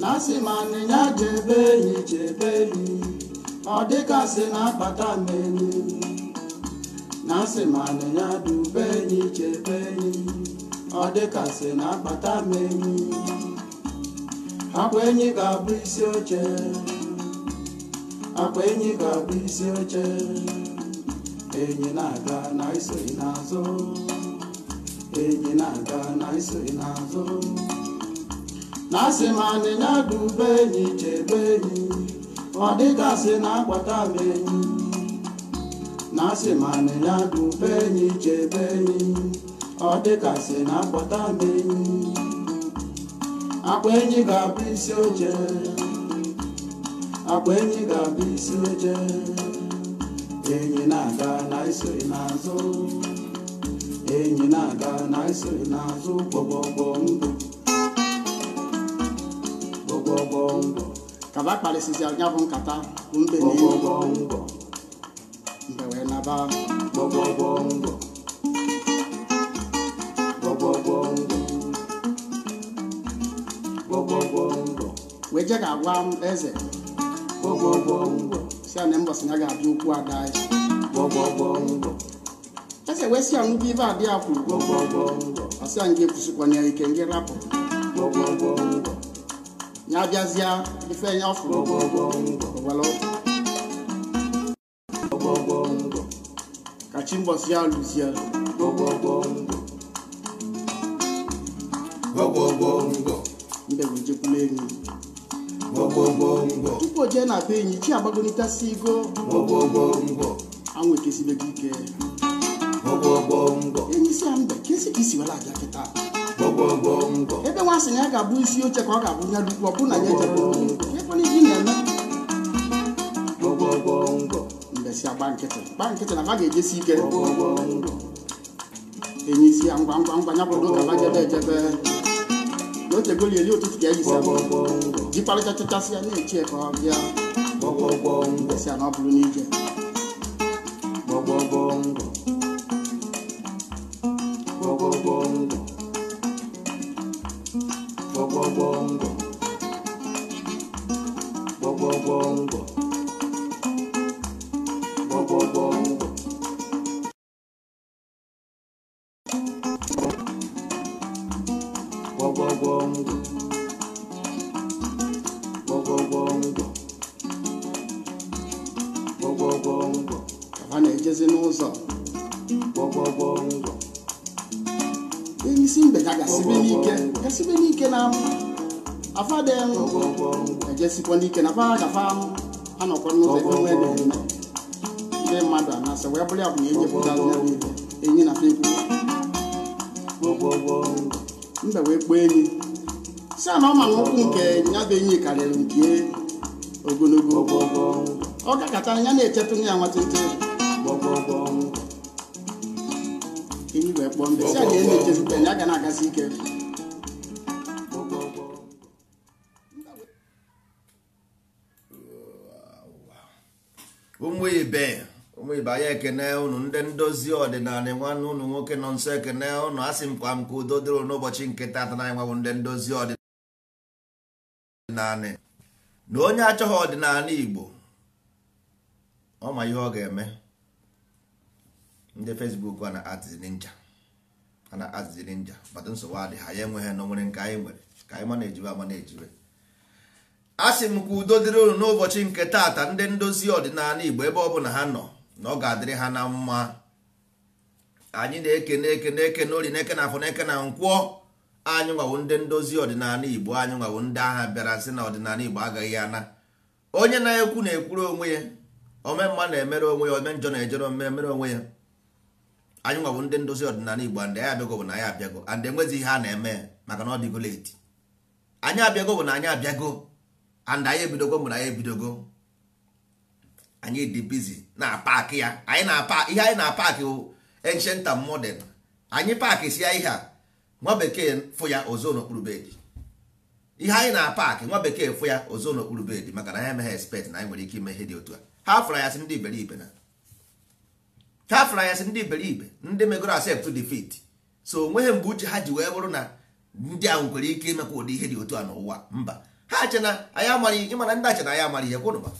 na asị ma anịnya jebe enyi jebe enyi ọ dịgasị na akpata na enyi akpata akwa enyi ga-abụ isi oche akwa enyi ga-abụ isi oche enyi na-aga na isoghị n'azụ na-aga na n'azụ na asị m na-adụ be enyi chebe enyi ọ dịka sị na-agbata m enyi na be enyi ọ dịka sị m enyi akpa enyi ga-abụ isi oche akpa enyi ga-abụ isi oche enyi na-aga na iso n'azụ enyi na-aga na n'azụ kpọgbọgbọ ndụ kaba akparịsịzi anya bụ nkata mbe na igbo mbe wee naba wee je ga-agwa eze si na mbọsị ya ga-abịa ukwu ada eze wee si ya ibe kwuru ike ngị rapụ ya bịazịa ife ya fụrụ ka chi mbọsị ya lụzie mbegojekwula enyi tupu o jee na be enyi chi agbagolitasi igo anwụ ekesibeghị ike enyi si ya mbe ka esi ka isi were abịa kịta ebe nwa sị na ya ga-abụ isi oche ka ọ ga-abụ ya dukwu ọbụ na ya ejebụmbesi agba nkịtị gba nkịtị na ba ga-ejesi ike enye isi ya ngwa ngwa ngwa ya bụ ka ba jebe ejebe n'oche goli eli ụtụtụ ka eyisi jikparịchachachasị ya na-echi ka ọ bịa esi ya na ọ bụrụ n'ije mbe wee kpọọ enyi si na ọ ma nkwụ nke ya bụ enyi karịrị nke ogologo ọ ọgụ ya na-echetụ ya ọgụ ọgụ enyi wee kpọọ mbe si a na ọgụ ọgụ ya ga na-agasi ike ụmụ ndebanye ekene unu ndị ndozi ọdịnala nwanne ụnụ nwoke nọ nso ekene unu asị m ka udo dịrị n'ụbọchị nke tata na nwanwụ ndị ndozi ọdịnala na onye achọghị ọdịnala Igbo ọ ma ihe ọ ga-eme ndị Fesbuk a na-atịzi ninja a na-atịzi ninja bata nsogbu adị ha ya enweghị nọ nwere nke anyị nwere ka anyị ma na-ejiwe ama na ejibe asị m ka udo dịrị unu n'ụbọchị nke tata ndị ndozi ọdịnala Igbo ebe ọ bụla ha nọ na ọ ga-adịrị ha na mma anyị na-eke na-eke na-eke na ori na-eke na afọ na-eke na nkwọ anyị nwawo ndị ndozi ọdịnala igbo anyị nwawo ndị agha bịara sị na ọdịnala igbo agaghị ana onye na-ekwu na-ekwuru onwe ya ome mma na-emere onwe ya ome njọ na-ejere ome mere onwe ya anyị nwawo ndị ndozi ọdịnala igbo andị anyị abịago bụ na anyị abịago andị enwezi ihe a na-eme maka na ọ dịgo leti anyị abịago bụ na anyị abịago and anyị ebidogo mgbe anyị ebidogo anyị dị bizi na paakị ya anyị na-apa ihe anyị na-apaakị bụ ancient and anyị paakị si ya ihe a nwa bekee fụ ya ozo n'okpuru bedi ihe anyị na-apaakị nwa bekee fụ ya ozo n'okpuru bedi maka na anyị emeghe expect na anyị nwere ike ime ihe dị otu a ha fụrụ ya si ndị iberibe na ha fụrụ ya si ndị iberibe ndị megoro accept defeat so onweghị mgbe uche ha ji wee bụrụ na ndị ahụ nwere ike imekwa ụdị ihe dị otu a n'ụwa mba ha che na anyị amaghị ịmana ndị ache na anyị amaghị ihe kwụnụba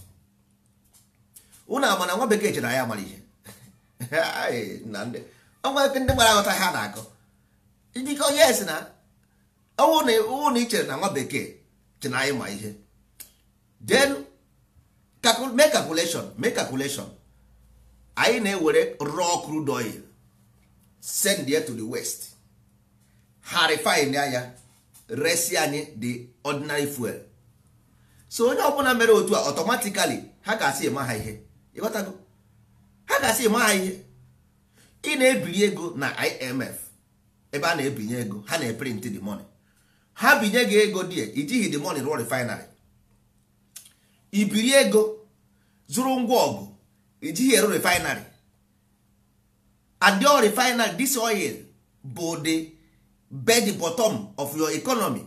ụnụ ama na nwa bekee chere ya mara ihe ọnwa ndị gbara aghọta ha na-akọ ndịkọ yes na ọnwụ na ichere na nwa bekee chere na anyị ma ihe then mee calculation mee calculation anyị na-ewere raw crude oil send ya to the west ha refine anya resi anyị the ordinary fuel so onye ọbụla mere otu a automatically ha ga-asị eme ha ihe ịghọtago ha ga-asị ma ihe ị na ebiri ego na IMF ebe a na-ebinye ego ha na-eprint the money ha binye gị ego die ijighị the money rụọ refinery ibiri ego zụrụ ngwa ọgụ ijighị eru refinery adio refinery this oil bụ the bed bottom of your economy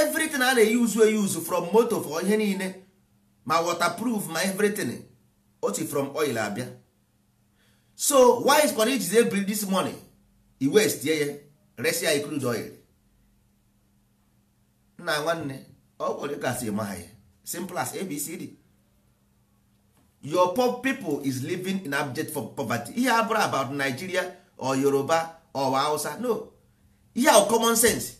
everything a na-eyuzu eyuzu from moto for ihe niile ma waterproof ma everything oti from oil abịa so why is kwara ijizi ebiri this money i west ye ya resi crude oil nna nwanne ọ gwara gasị ma ha ya simple as abcd your poor people is living in abject for poverty ihe abụrụ about nigeria or yoruba or hausa no ihe ahụ common sense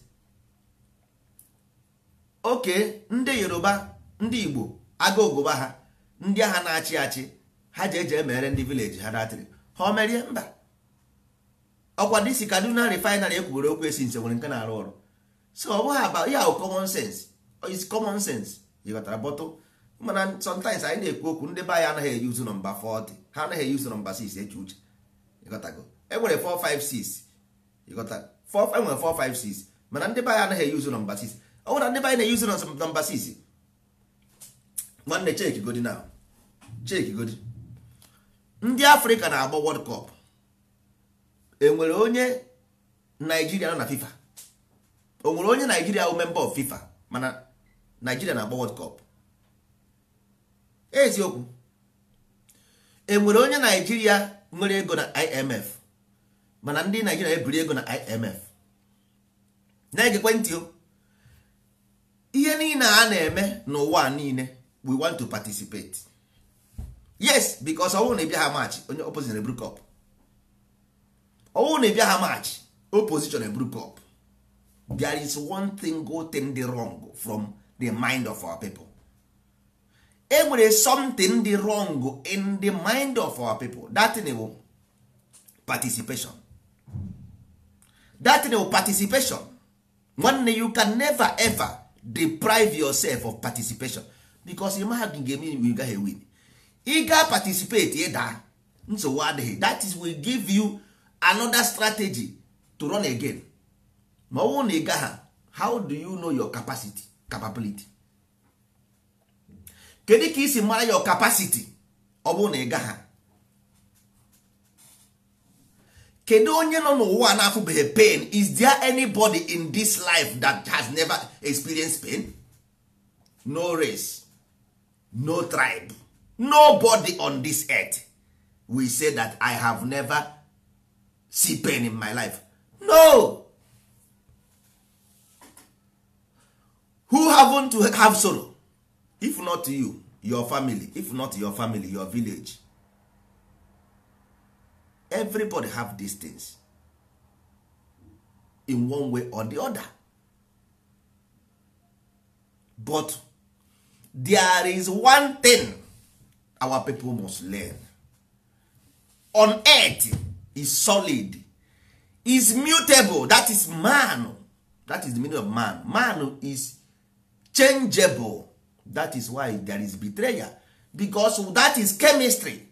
okay ndị yoruba ndị igbo agụgụba ha ndị agha na-achị achị ha ji eji emere ndị vileji ha datịrị ha omerie mba ọkwa kadụ kaduna refinery ekwubere okwu esi nse nwere nke na-arụ ọrụ so ọ bụghị aba ya bụ common sense is common sense jikọtara bọtụ mana sometimes anyị na-ekwu okwu ndị be anyị anaghị eyi uzu nọmba 40 ha anaghị nọmba 6 eche uche enwere 456 enwere 456 mana ndị be anyị anaghị uzu nọmba 6 ọ anyị na uzu nọmba 6 nwanne Chike godi na Chike godi ndị afrịka na-agba Wọld cup enwere onye naijiria nọ na fifa o nwere onye naijiria bụ memba of fifa mana naijiria na-agba Wọld Kọp eziokwu enwere onye naijiria nwere ego na imf mana ndị naijiria ebiri ego na imf na-egekwe ntị ihe niile a na-eme n'ụwa niile we want to participate yes because ọnwụ na ịbịa ha match onye opposition eburu cup ọnwụ na ịbịa ha match opposition eburu cup there is one thing go thing the wrong from the mind of our people e nwere something the wrong in the mind of our people that thing participation that thing bụ participation nwanne you can never ever deprive yourself of participation bikos ị maha gị ga-eme ime gaghị win ị ga participate ịda nsogbu adịghị that is we give you another strategy to run again ma ọ bụrụ na ị gaha how do you know your capacity capability kedu ka isi mara your capacity ọ bụrụ na ị gaha kedu onye nọ n'ụwa na-afụbeghị pain is there anybody in this life that has never experienced pain no race no tribe nobody on this earth will say that i have never see pain in my life no who haven't to have sorrow if not you your family if not your family your village everybody have these things in one way or the other but there is one thing our people must learn on earth is solid is mutable that is man that is the meaning of man man is changeable that is why there is betrayal because that is chemistry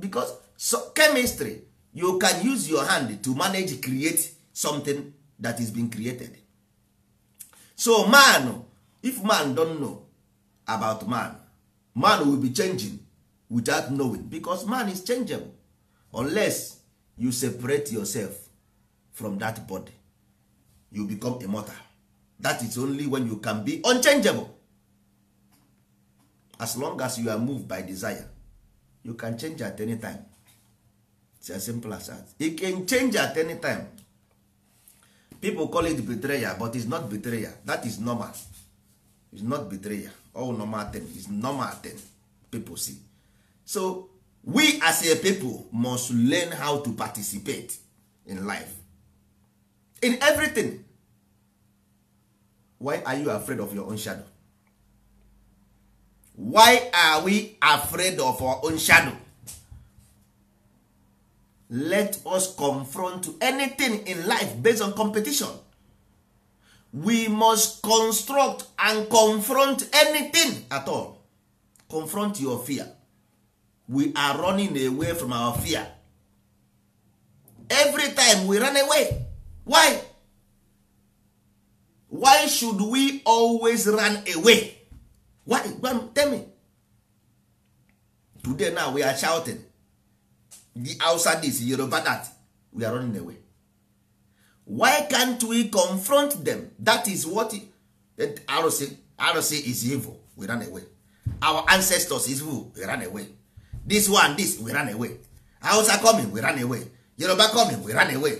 because so chemistry you can use your hand to manage create something that is being created so man if man don't know about man man will be changing without knowing because man is changeable unless you separate yourself from that body you become immortal that is only when you can be unchangeable as long as you are moved by desire you can change at any time it's as simple as that you can change at any time people call it betrayal but it's not betrayal that is normal is not betrayal all normal thing is normal thing people see so we as a people must learn how to participate in life in everything why are you afraid of your own shadow why are we afraid of our own shadow let us confront anything in life based on competition we must construct and confront anything at all confront your fear we are running away from our fear every time we run away why why should we always run away why tell me today now we are shouting the outside is yoruba that we are running away why can't we confront them that is what arụsị arụsị is evil we run away our ancestors is evil we run away this one this we run away hausa coming we run away yoruba coming we run away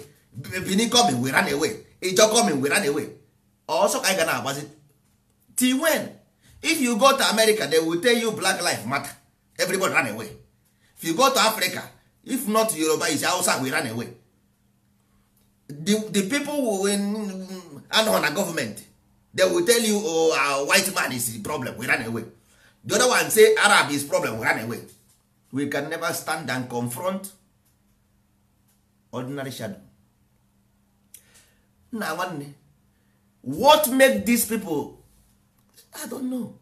benin coming we run away ijo coming we run away ọsọ ka anyị ga na-agbazi till when if you go to america they will tell you black life matter everybody run away if you go to africa if not yoruba is hausa we run away the, the people who anọ na gọọmenti they will tell you oh, uh, white man is the problem we run away the other one say arab is problem we run away we can never stand and confront ordinary shadow one nwanne what make these people i don't know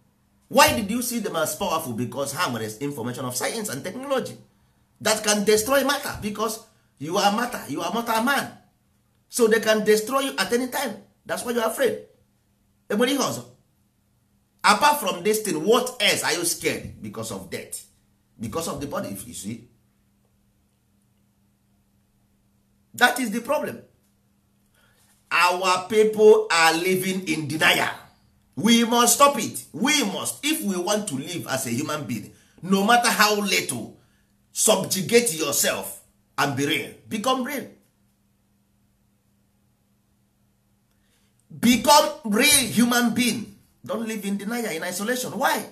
why did you see them as powerful because ha nwere information of science and technology that can destroy matter because you are matter you are matter man so they can destroy you at any time that's why you are afraid enwere ihe ọzọ apart from this thing what else are you scared because of death because of the body if you see that is the problem our people are living in denial we must stop it we must if we want to live as a human being no matter how little subjugate yourself and be real become real become real human being don't live in denial in isolation why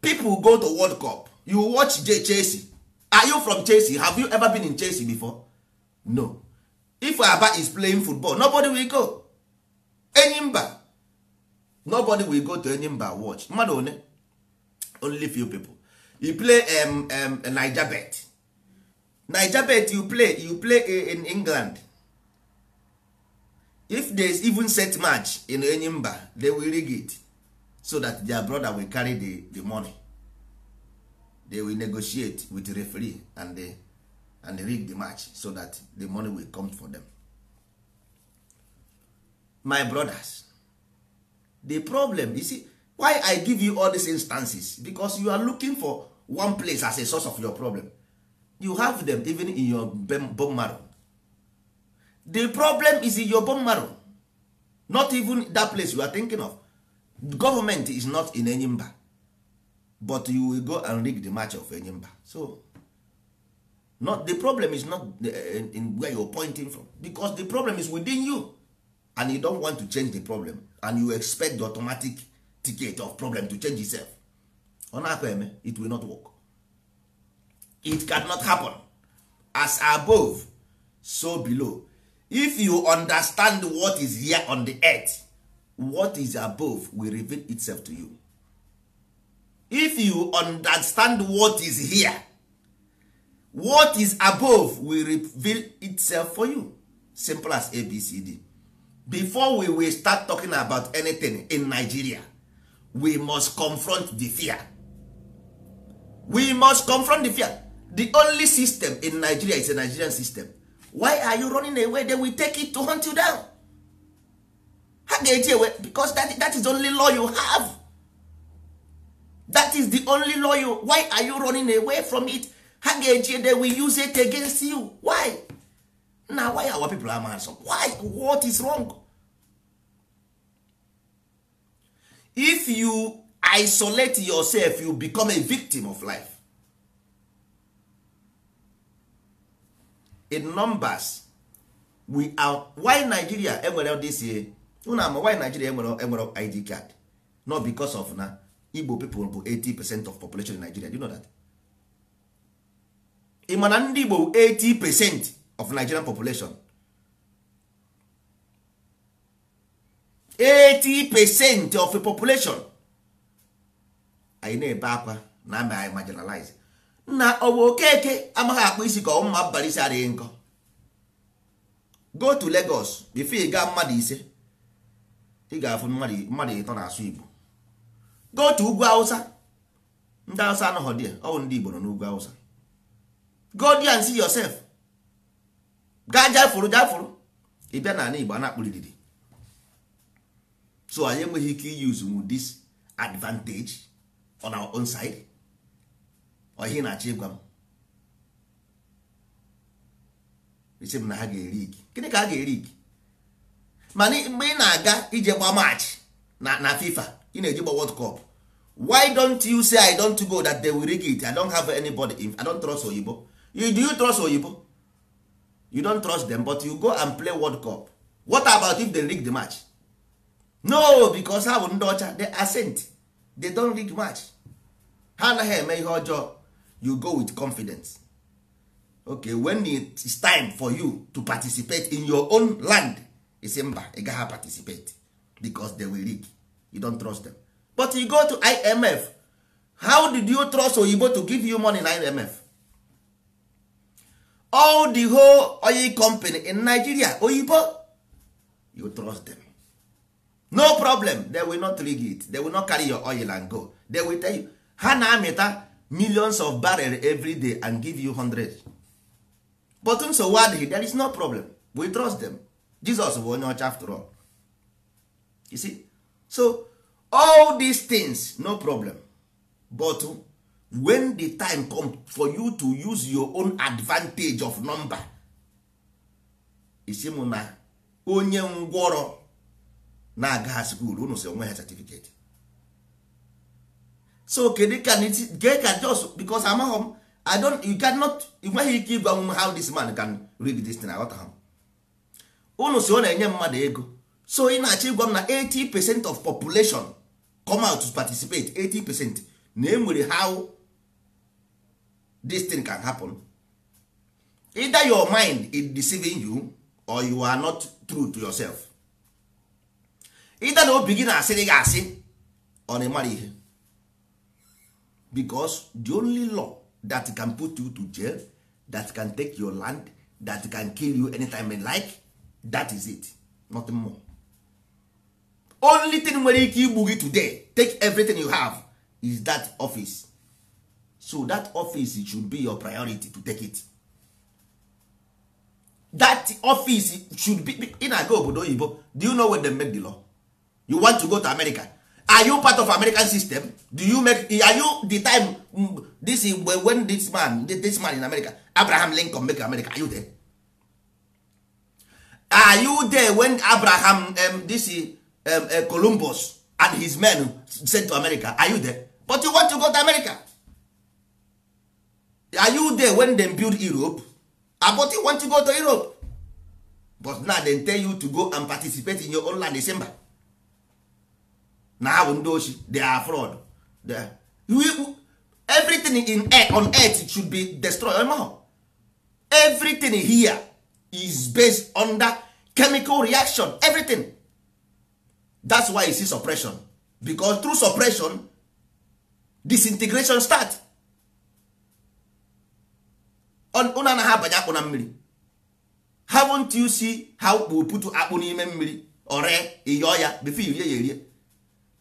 people go to world cup you watch chelsea are you from chelsea have you ever been in chelsea before no if aba is playing football nobody will go enyimba nobody will go to enyimba watch mmadụ one only few people you play um, um, niger bet niger bet you play you play in england if there even set match in enyimba they will rig it so that their brother will carry the, the money they will negotiate with the referee and they, rig the match so that the money will come for them my brothers the problem you see why i give you all these instances because you are looking for one place as a source of your problem you have them even in your bone marrow the problem is in your bone marrow not even that place you are thinking of government is not in enyimba but you will go and rig the match of enyimba so not the problem is not the, eh, eh, in, in you are pointing from because the problem is within you and you don't want to change the problem and you expect the automatic ticket of problem to change itself ọ na eme it will not work it cannot happen as above so below if you understand what is here on the earth what is above will reveal itself to you if you understand what is here what is above will reveal itself for you simple as abcd before we will start talking about anything in nigeria we must confront the fear we must confront the fear the only system in nigeria is a nigerian system why are you running away they will take it to hunt you down ha ga-eji ewe because that, is the only law you have that is the only law you why are you running away from it ha ga-eji they use it against you why na why our people are mad so why what is wrong if you isolate yourself you become a victim of life in numbers we are why Nigeria enwere this year unu ama why Nigeria enwere enwere ID card not because of na Igbo people bụ 80 percent of population in Nigeria do you know that ị ma na ndị Igbo 80 percent of Nigerian population 80 percent of the population anyị na-ebe akwa na ama anyị marginalize na bụ okeke amaghị akpụ isi ka ọmụma abalị isi adịghị nkọ go to Legos bifo gaa mmadụ ise ị ga-afụ mmadụ ịtọ na-asụ Igbo go to ugwu awụsa ndị Hausa anọghọ dị ọ bụ ndị Igbo nọ n'ugwu awụsa go there and see yourself gaa jafuru jafuru ị bịa n'ala Igbo a na-akpụlididi so anyị enweghị ike iyuzu dis advantage on our own side. ọhịa na-achọ ịgwa m isi m na ha ga-eri igi gịnị ka ha ga-eri igi mana mgbe ị na-aga ije gba maachị na FIFA ị na-eji gba World Cup why don't you say I don't go that they will rig it I don't have anybody if I don't trust oyibo you, do you trust oyibo you don't trust them but you go and play World Cup what about if they rig the match no because ha bụ ndị ọcha they ascent they don't rig match ha anaghị eme ihe ọjọọ you go with confidence okay when it is time for you to participate in your own land say mba ị participate because they will rig you don't trust them but you go to imf how did you trust oyibo to give you money in imf all the whole oil company in nigeria oyibo you trust them no problem they will not rig it they will not carry your oil and go they will tell you ha na-amịta millions of barrel every day and give you hundred but nsogbu um, adịghị there is no problem we trust them Jesus bụ onye ọcha after all you see so all these things no problem but when the time come for you to use your own advantage of number isi m na onye ngwọrọ na-aga ha skuul unu si onwe ha certificate so kedu ka nke ka just because amaghị m i don't you cannot nweghị ike ịgwa m how this man can do this thing aghọta ha unu si ọ na-enye mmadụ ego so ị na-achọ ịgwa m na 80 percent of population come out to participate 80 percent na enwere how this thing can happen either your mind is deceiving you or you are not true to yourself either na obi gị na-asịrị gị asị ọ na-emara ihe because the only law that can put you to jail that can take your land that can kill you anytime you like that is it nothing more only thing nwere ike igbu gị today take everything you have is that office so that office should be your priority to take it that office should be in ago obodo oyibo do you know where they make the law you want to go to america are you part of american system do you make are you the time mm, this is when this man this man in america abraham lincoln make america are you there are you there when abraham um, this um, uh, columbus and his men sent to america are you there but you want to go to america are you there when dem build europe ah, but you want to go to europe but now dem tell you to go and participate in your own land december na ha bụ ndị ochi they are fraud everything in air, on earth should be destroyed anymore. everything here is based on chemical reaction everything that's why you see suppression because through suppression disintegration start na ha abanye akpụ na mmiri haven't you see how we put akpụ n'ime mmiri ore ịyọọ ya before you rie ya erie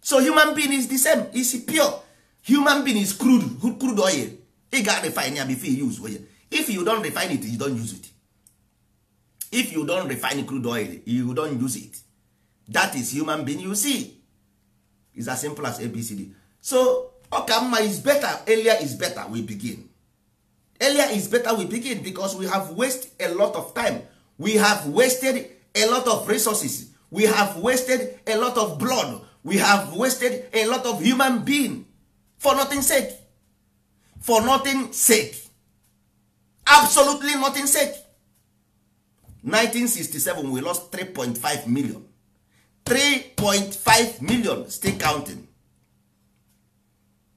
so human being is the same is pure human being is crude crude oil ị ga refine ya before you use oil if you don refine it you don use it if you don refine crude oil you don use it that is human being you see is as simple as abcd so ọka mma is better earlier is better we begin earlier is better we begin because we have wasted a lot of time we have wasted a lot of resources we have wasted a lot of blood we have wasted a lot of human being for nothing sake for nothing sake absolutely nothing sake 1967 we lost 3.5 million 3.5 million still counting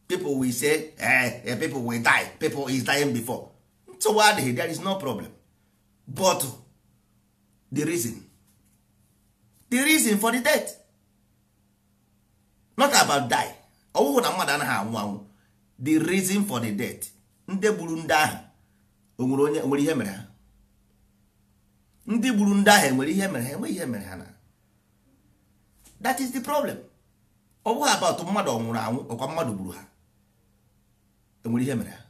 people will say eh, eh, people will die people is dying before so why there is no problem but the reason the reason for the death not about die ọwụwụ na mmadụ anaghị anwụ anwụ the reason for the death ndị gburu ndị ahụ onwere onye nwere ihe mere ha ndị gburu ndị ahụ enwere ihe mere ha enweghị ihe mere ha na that is the problem ọ bụghị about mmadụ ọ nwụrụ anwụ ọkwa mmadụ gburu ha enwere ihe mere ha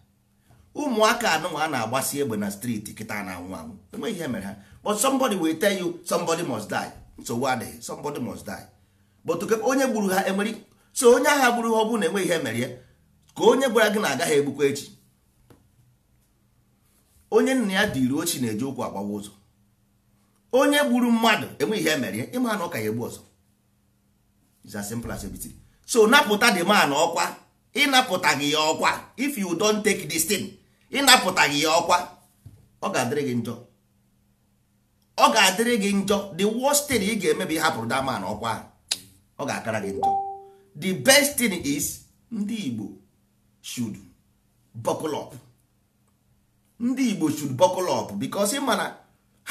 ụmụaka anụnwa a na-agbasi egbe na streeti kịta na-anwụ anwụ enweghị ihe mere ha but somebody will tell you somebody must die nsogbu adịghị somebody must die bụtụke onye gburu ha emeri so onye agha gburu ha ọ bụrụ na enweghị ihe mere ya ka onye gwara gị na agaghị egbukwa echi onye nna ya dị dịri ochi na-eji ụkwụ agbawa ụzọ onye gburu mmadụ enweghị ihe mere ya ịma na ọ ka ya egbu ọzọ is as simple as so napụta dị man ọkwa ịnapụtaghị ya ọkwa if you don't take this thing ịnapụtaghị ya ọkwa ọ ga-adịrị gị njọ ọ ga-adịrị gị njọ the worst thing ị ga-eme bụ ịhapụrụ that man ọkwa ahụ ọ ga-akara gị njọ the best thing is ndị Igbo should buckle up ndị Igbo should buckle up because ịma na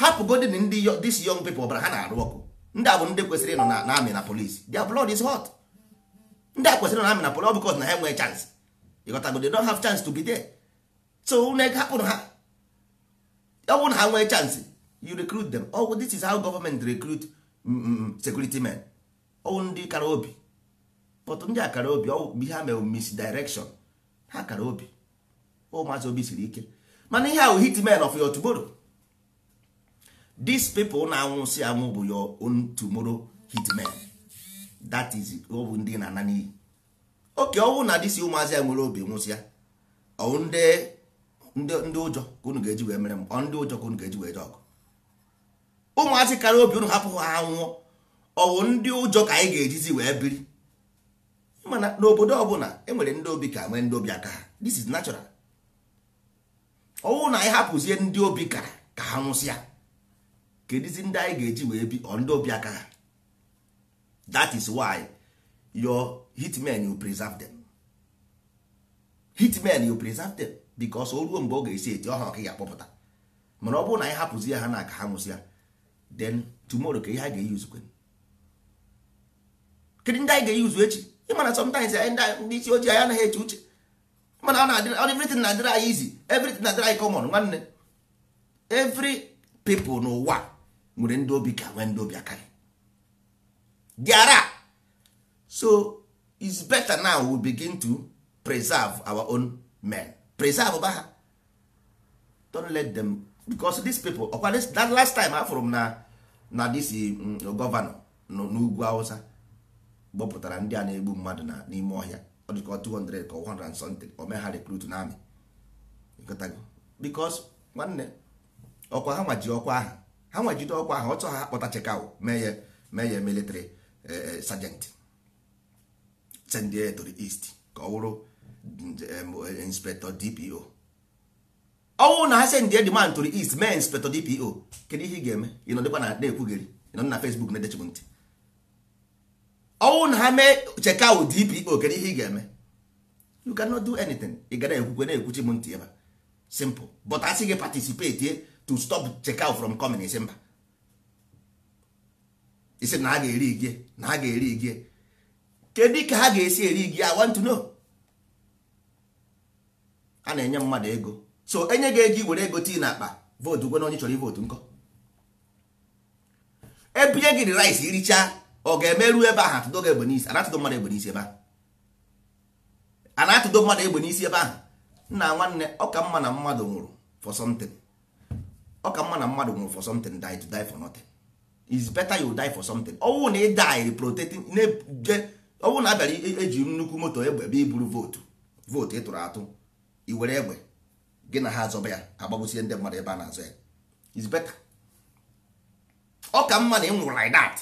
hapụgodin ndị this young people ọbara ha na-arụ ọkụ ndị a ndị kwesịrị ịnọ na amị na polisi their blood is hot ndị a kwesịrị ịnọ na amị na polisi because na ha enwee chance ịghọtago they don't have chance to be there so hapụrụ ha ọ bụrụ na ha nwee chance you recruit them oh, this is how government recruit mm, mm, mm, security men ọwụ ndị kara obi but ndị a kara obi ọwụ a mere misdirection ha kara obi ụmụazị obi siri ike mana ihe ahụ hitmen of your tomorrow these people na-anwụsị anwụ bụ your own tomorrow hitmen that is ọwụ ndị na-ana n'iyi oke ọwụ na dịsi ụmụazị ya nwere obi nwụsịa ọwụ ndị ụjọ ka unu ga-eji wee mere m ọ ndị ụjọ ka unu ga-eji wee je ọgụ ụmụazị kara obi unu hapụ ha anwụọ. ọwụ ndị ụjọ ka anyị ga-ejizi wee biri mana n'obodo ọbụla enwere ndị obi ka nwee ndị obi aka ha this is natural ọwụ na anyị hapụzie ndị obi ka ka ha nwụsịa kedizi ndị anyị ga-eji wee bi ọ ndị obi aka ha that is why your hitmen you preserve them hitmen you preserve them because o ruo mgbe ọ ga-esi eti ọha ọka ya kpọpụta. mana ọ bụrụ na anyị hapụzi ha na ka ha nwụsịa then tomorrow ka ihe a ga-eyi uzukwe kedu ndị anyị ga-eyuzu echi ịmana sometimes ndị isi ojii anyị anaghị eche uche mana everything na-adịrị anyị izi everything na-adịrị anyị common nwanne every people n'ụwa nwere ndị obi ka nwee ndị obi akarị diara so it's better now we begin to preserve our own men preserve ba ha don't let them because these people ọkwa that last time afụrụ m na na this mm, gọvanọ n'ugwu Hausa gbọpụtara ndị a na-egbu mmadụ na n'ime ọhịa ọ dị ka 200 ka 100 something ome ha rekrut na amị bikos nwanne ọkwa ha nwaji ọkwa ahụ ha nwajide ọkwa ahụ ọtọ ha kpọta chekaw meye meye militri ya military e, e, sergeant send ya to ka ọ wụrụ inspector dpo ọnwụ na ha sendie demand to the east mee inspector dpo kedu ihe ị ga-eme ịnọdịkwa na na-ekwugheri ịnọ na fesbuk na-edechigbu ntị ọnwụ na ha mee cheka wụ dpo kedu ihe ị ga-eme you cannot do anything ị ga na-ekwukwe na-ekwuchi m ntị ebe simple but asị gị participate to stop checkout from coming isi mba isi na ha ga-eri gị na ha ga-eri gị kedu ka ha ga-esi eri gị i want to know a na-enye mmadụ ego so enye gị ego were ego tii na akpa vootu gwe onye chọrọ ivootu nkọ ebinye gị rice irichaa ọ ga-emeru ebe ahụ atụdo egbe n'isi anatụdo mmadụ egbe n'isi ebe ahụ anatụdo mmadụ egbe n'isi ebe ahụ nna nwanne ọka mma na mmadụ nwụrụ for something ọka mma na mmadụ nwụrụ for something die to die for nothing is better you die for something ọnwụ na ị die protecting ọnwụ na abịara eji nnukwu moto egbe ebe iburu vootu vootu ị tụrụ atụ i were egbe gị na ha azọba ya agbagbusie ndị mmadụ ebe a na-azọ ya is better ọka mma na ị nwụrụ like that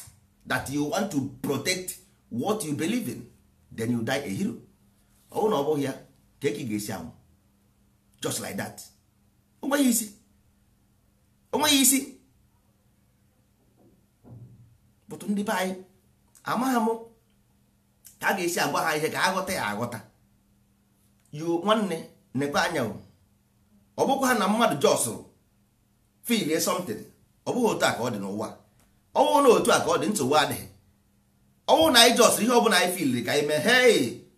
that you want to protect what you believe in then you die a hero ọnwụ na ọ bụghị ya ka eke ga-esi anwụ just like that onweghị isi onweghị isi bụtụ ndị be anyị amaghị m ka a ga-esi agwa ha ihe ka aghọta ya aghọta yo nwanne n'ekpe anya ọ um. bụkwa ha na mmadụ jọsụrụ um. filie something ọ bụghị otu a ka ọ dị n'ụwa ọnwụ na otu a ka ọ dị nsogbu adịghị ọnwụ na anyị jọsịrị ihe bụla anyị filiri ka anyị mee hei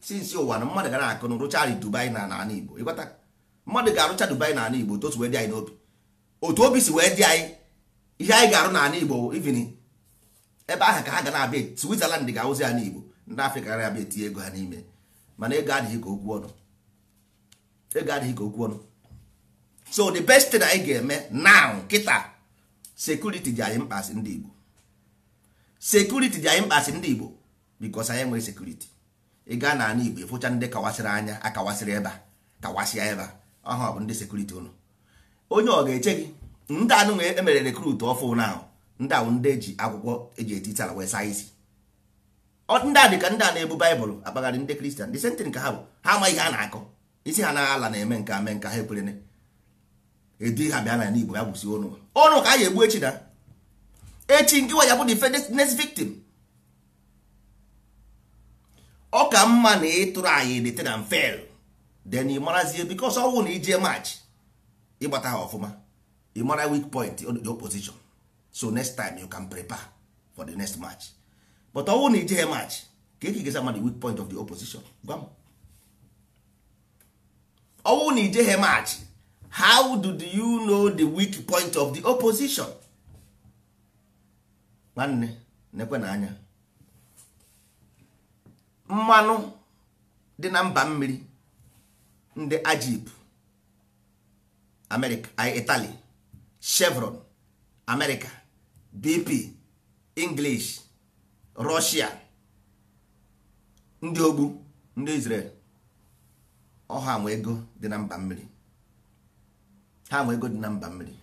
sinsi ụwa na mmadụ gara akụ na rụcha Dubai na n'ala Igbo ịghọta mmadụ ga-arụcha Dubai na ala Igbo otu osi wee dị anyị n'obi otu obi si wee dị anyị ihe anyị ga-arụ na ala Igbo ivini ebe ahụ ka ha ga na-abịa Switzerland ga-awụzi ala Igbo ndị Afrịka gara abịa etinye ego ha n'ime mana ego adịghị ka okwu ọnụ ego adịghị ka okwu ọnụ so the best thing anyị ga-eme now kịta sekuriti dị anyị mkpa ndị Igbo sekuriti dị anyị mkpasị ndị igbo bikos anyị nwere sekuriti ị gaa n'ala igbo ịfụcha ndị kawasịrị anya akawasịrị ebe a kawasịa ebe a ọha bụ ndị sekuriti ụnụ onye ọ ga-eche gị ndị anụ emere rekrut ọfụ ahụ ndị ahụ ndị eji akwụkwọ eji etiti ala wee saa isi ndị a dị ka ndị a na-ebu baịbụl akpagharị ndị kristian dị sentin ka ha bụ ha amaghị ihe a na-akọ isi ha naghị ala na-eme nke ame nke ha ekwere edu ha bịa na igbo ya gwụsi ọnụ ụnụ ka a ga-egbu echi na echi nke nwa ya bụ next victim ọ ka mma na ịtụrụ e anyị return and fail then ị marazie because ọnwụ na ije match ịgbata ha ọfụma ị mara weak point the opposition so next time you can prepare for the next match but ọnwụ na ije match ka eke gesa the weak point of the opposition gwa m na ije match how do you know the weak point of the opposition nwanne na-ekwe na anya mmanụ dị na mba mmiri ndị ajip itali italy chevron america bp english russia ndị ogbu ndị israel ọha nwe dị na mba mmiri ha nwe ego dị na mba mmiri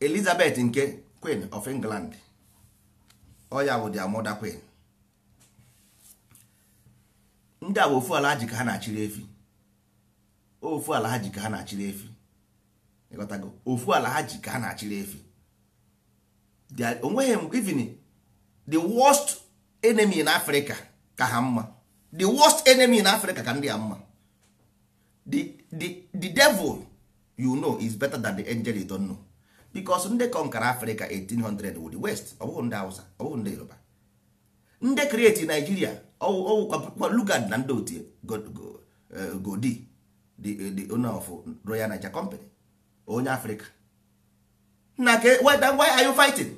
elizabeth nke queen of england oya bụ dia mother queen ndị a ofu ala ji ha na-achịrị efi ofu ala ha ji ka ha na-achịrị efi ịghọtago ofu ala ha ji ka ha na-achịrị efi onweghị even the worst enemy in africa ka ha mma the worst enemy in africa ka ndị a mma the, the, the devil you know is better than the angel you don't know. because ndị kọnkara afrịka 1800 wụ west ọ bụghị ndị hausa ọ bụghị ndị yoruba ndị kreti naijiria ọwụkwa lugard na ndị otu eh, godi eh, the owner of royal niger company onye afrịka na ke why are you fighting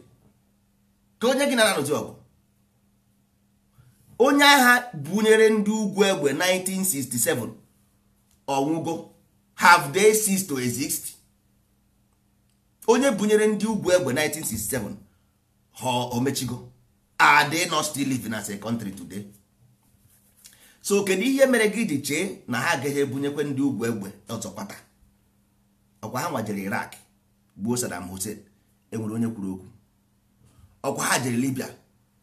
ka onye gị nara n'ozi ọgụ onye agha bunyere ndị ugwu egbe 1967 ọnwụgo have they ceased to exist onye bunyere ndị ugwu egbe 1967 ha omechigo are dị not still living as a today so kedu ihe mere gị ji chee na ha agaghị ebunyekwe ndị ugwu egbe ọzọ kwata ọkwa ha nwajere Iraq gbuo Saddam Hussein enwere onye kwuru okwu ọkwa ha jere Libya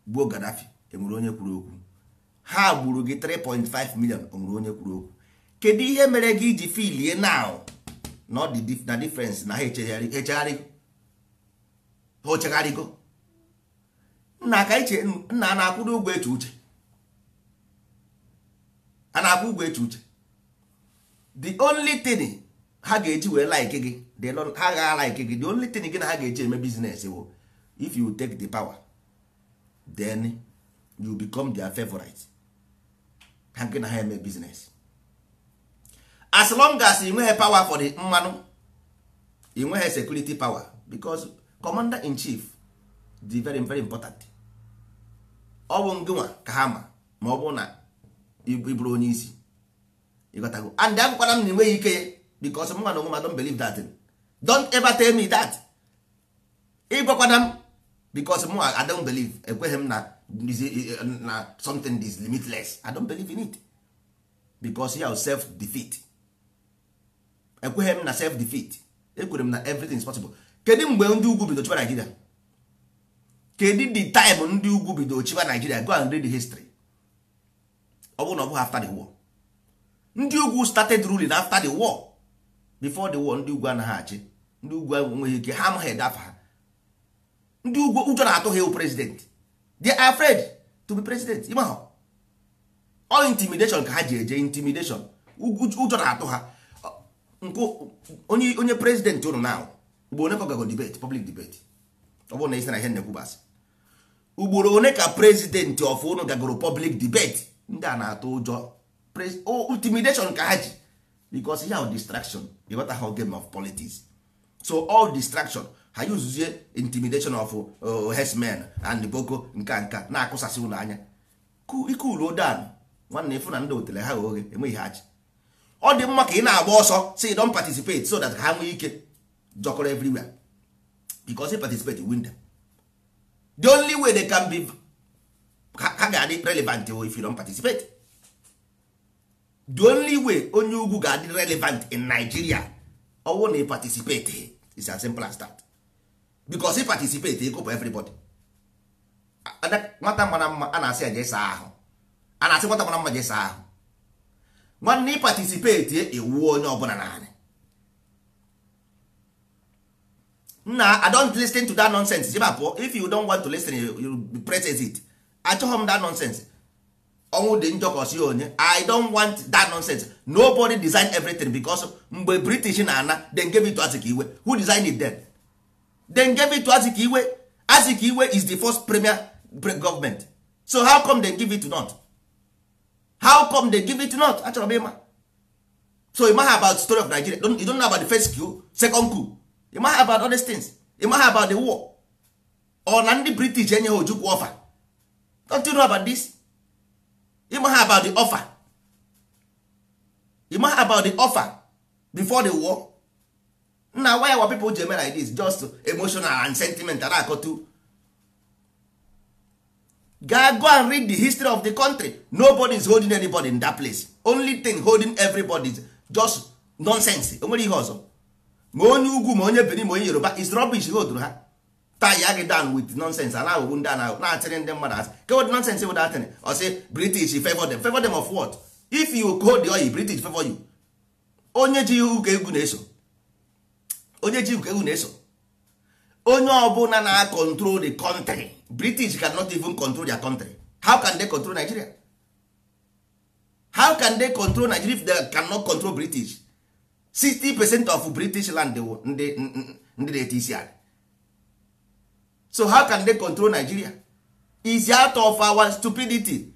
gbuo Gaddafi enwere onye kwuru okwu ha gburu gị 3.5 million enwere onye kwuru okwu kedu ihe mere gị ji filie now na ọ dị na difference na ha ochegharịgo nna aka iche nna na-akwụdo ụgwọ eche uche a na-akwụ ụgwọ eche uche the only thing ha ga-eji wee like gị ha agha like gị the only thing gị na ha ga-eji eme business wo if you take the power then you become their favorite ha gị na ha eme business as long as ị nweghị power for the mmanụ ị nweghị security power because commander in chief dị very very important ọ bụ ngịnwa ka ha ma ma ọ bụ na ịbụrụ onye isi go and akwụkwara m na enweghị ike because mma na onwe ma don't believe that don't ever tell me that ịgwakwana m because mụ I don't believe ekweghị m na na something is limitless I don't believe in it because ya self defeat ekweghị m na self defeat ekwere m na everything is possible kedu mgbe ndị ugwu bido chiba Nigeria kedu the time ndị ugwu bido chiba Nigeria go and read the history ọ bụrụ na ọ bụghị after the war ndị ugwu started ruling after the war before the war ndị ugwu anaghị achị ndị ugwu enweghị ike ha amaghị ede afa ha ndị ugwu ụjọ na-atụ ha ewu president they are afraid to be president ịma all intimidation ka ha ji eje intimidation ụjọ na-atụ ha nkụ onye onye prezidenti ụnụ na mgbe onye ka gago debate public debate ọ bụrụ na isi na ihe nnekwubasị ugboro one ka prezidenti of ụnụ gagoro public debate ndị a na-atụ ụjọ intimidation ka ha ji because ihe ahụ distraction ịghọta ha game of politics so all distraction ha yuzuzie intimidation of uh, herdsmen and boko nka nka na-akụsasị ụlọ anya ike uruodan nwanne ịfụ na ndị otele ha oghe enweghị ha ji ọ dị mma ka ị na-agba ọsọ si don participate so that ha nwee ike jọkọrọ everywhere because he participate win them the only way they can be ha ga-adị relevant if you don participate the only way onye ugwu ga-adị relevant in Nigeria ọwụ na participate is as simple as that because he participate ịkụpụ everybody nwata mara mma a na-asị ya jee saa ahụ a na-asị nwata mara mma jee saa ahụ nwanne ị patisipeti ewuo onye ọbụla naanị nna i don't listen to that nonsense jeba pụọ if you don't want to listen you press it achọghị m that nonsense ọnwụ dị njọ onye i don't want that nonsense nobody design everything because mgbe british na-ana then gave it to Azikiwe who designed it then then gave it to Azikiwe Azikiwe is the first premier government so how come they give it to not how come they give it not achọrọ m ịma so you know about the story of nigeria you don't know about the first coup second coup you know about all these things you know about the war ọ na ndị british enye ha ojukwu offer don't you know about this you know about the offer you about the offer before the war nna why our people ji eme like this just emotional and sentiment na-akọtu go and read the history of the country nobody is holding anybody in that place only thing holding everybody is just nonsense enwere ihe ọzọ ma onye ugwu ma onye benin ma onye yoruba is rubbish holdru ha tie ya gị down with nonsense ana ahụhụ ndị ana na-atịrị ndị mmadụ asị kewod nonsense wod atịrị ọ sị british favor them favor them of what if you hold the oyi british favor you onye ji ụka egwu na-eso onye ji ụka egwu na-eso onye ọbụla na-akọntrol the country british cannot even control their country how can they control nigeria how can they control nigeria if they cannot control british 60 percent of british land ndị na-eti so how can they control nigeria is out of our stupidity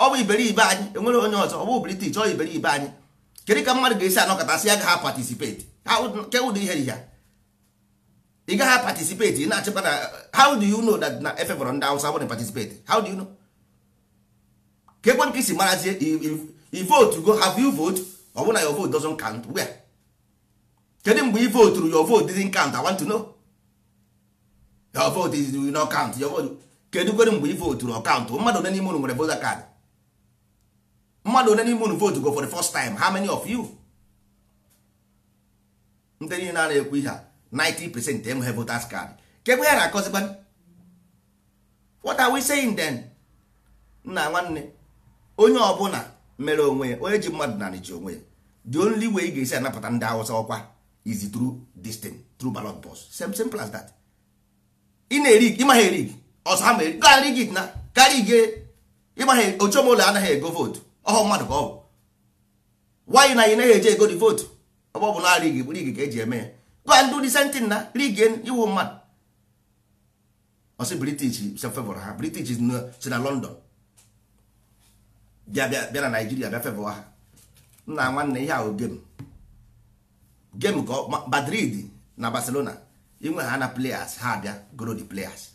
ọ bụ iberibe anyị enwere onye ọzọ ọ bụ british ọ iberibe anyị kedu ka mmadụ ga-esi anọkọta si ya ga ha participate kedu ihe ihe ị gaghị participate na-achịkwa na how do you know that na efebọrọ ndị awụsa wụrụ participate how do you know ka ekwe nke isi marazie i vote go have you vote ọ bụ na your vote doesn't count where kedu mgbe i vote your vote didn't count i want to know your vote is you not count your vote kedu kwere mgbe i voturu ọkaụntụ mmadụ one n'ime unu nwere voter card mmadụ one n'ime unu vote go for the first time how many of you ndị niile na-ekwu ihe a 90% enweghị voters card kegbe ya na-akọzikwa what are we saying then nna nwanne onye ọbụla mere onwe onye ji mmadụ na ji onwe ya the only way ị ga-esi anapụta ndị awụsa ọkwa is through this thing through ballot box same simple as that ị na-eri ịmaghị eri ọsọ ha mere karị gị na karị gị ịmaghị ochomola anaghị ego vootu ọhụ mmadụ ka ọ bụ nwaanyị na anyị naghị eje ego the vootu ọ bụ na arị gị bụrụ gị ka eji eme ya go and do the same thing na rigen iwu mmadụ ọsị british favor ha british si na london bịa bịa na naijiria bịa favor ha nna nwanne ihe ahụ game game ka madrid na barcelona inwe ha na players ha abịa goro the players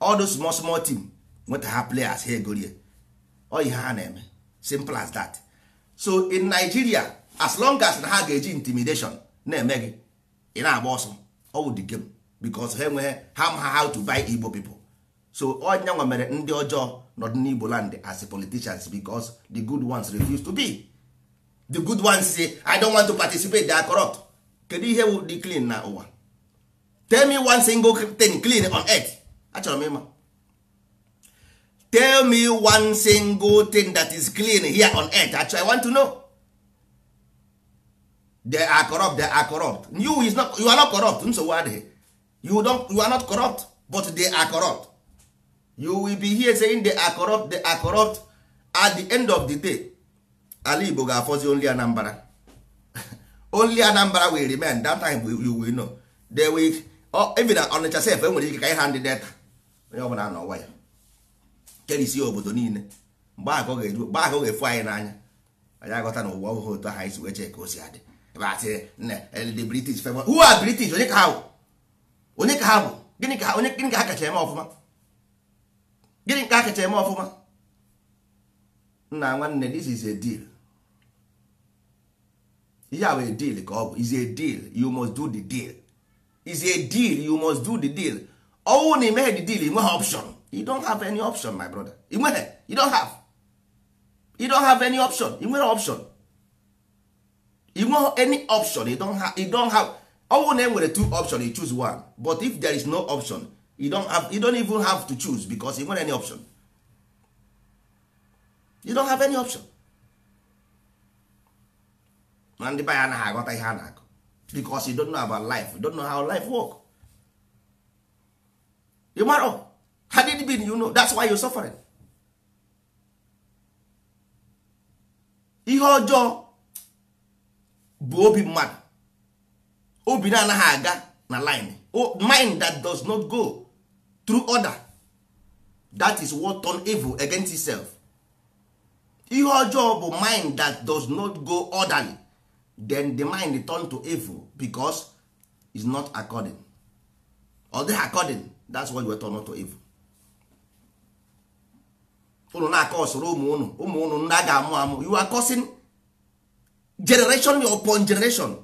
all those small small team nweta ha players ha egorie ọ ihe ha na-eme simple as that so in nigeria as long as na ha ga-eji intimidation na-eme gị ị na-agba ọsọ ọwụ the game because ha enweghị ha ma how to buy igbo people so ọnya nwa mere ndị ọjọọ n'ọdịnigbo land as politicians because the good ones refuse to be the good ones say i don't want to participate they are corrupt kedu ihe wụ dị clean na ụwa tell me one single thing clean on earth achọrọ m ịma tell me one single thing that is clean here on earth Actually, i want to know they are corrupt they are corrupt you is not you are not corrupt nsogbu adịghị you don't you are not corrupt but they are corrupt you will be here saying they are corrupt they are corrupt at the end of the day ala igbo ga-afọzi only anambra only anambra will remain that time you will know they will oh, even nature sef enwere ike ka ịha ndị data onye ọbụla n'ụwa ya kerisi obodo niile mgbe akọ ga-efu anyị n'anya anyị aghọta na ụwa otu aha anyị wee chee ka o si adị asị eh, the british favor who are british onye ka ha bụ onye ka ha bụ gịnị ka onye gịnị ka ha kacha eme ọfụma gịnị ka ha kacha eme ọfụma nna nwanne this is a deal ihe a a deal ka ọ bụ is a deal you must do the deal is a deal you must do the deal ọnwụ na imeghe the deal ịnweghị option you don't have any option my brother ịnweghị you don't have you don't have any option ị nwere option you want any option you don't have, you don't have ọnwụ na two option you choose one but if there is no option you don't have you don't even have to choose because you nwere any option you don't have any option na ndị baya anaghị aghọta ihe a na-akụ because you don't know about life you don't know how life work you mara oh, had it been you know that's why you suffering ihe ọjọọ bụ obi mmadụ obi na-anaghị aga na line mind that does not go through order that is what turn evil against itself ihe ọjọọ bụ mind that does not go orderly then the mind turn to evil because is not according ọ dịghị according that's why we turn to evil unu na-akọ ụsoro ụmụ unu ụmụ unu ndị a ga-amụ amụ you are causing generation upon generation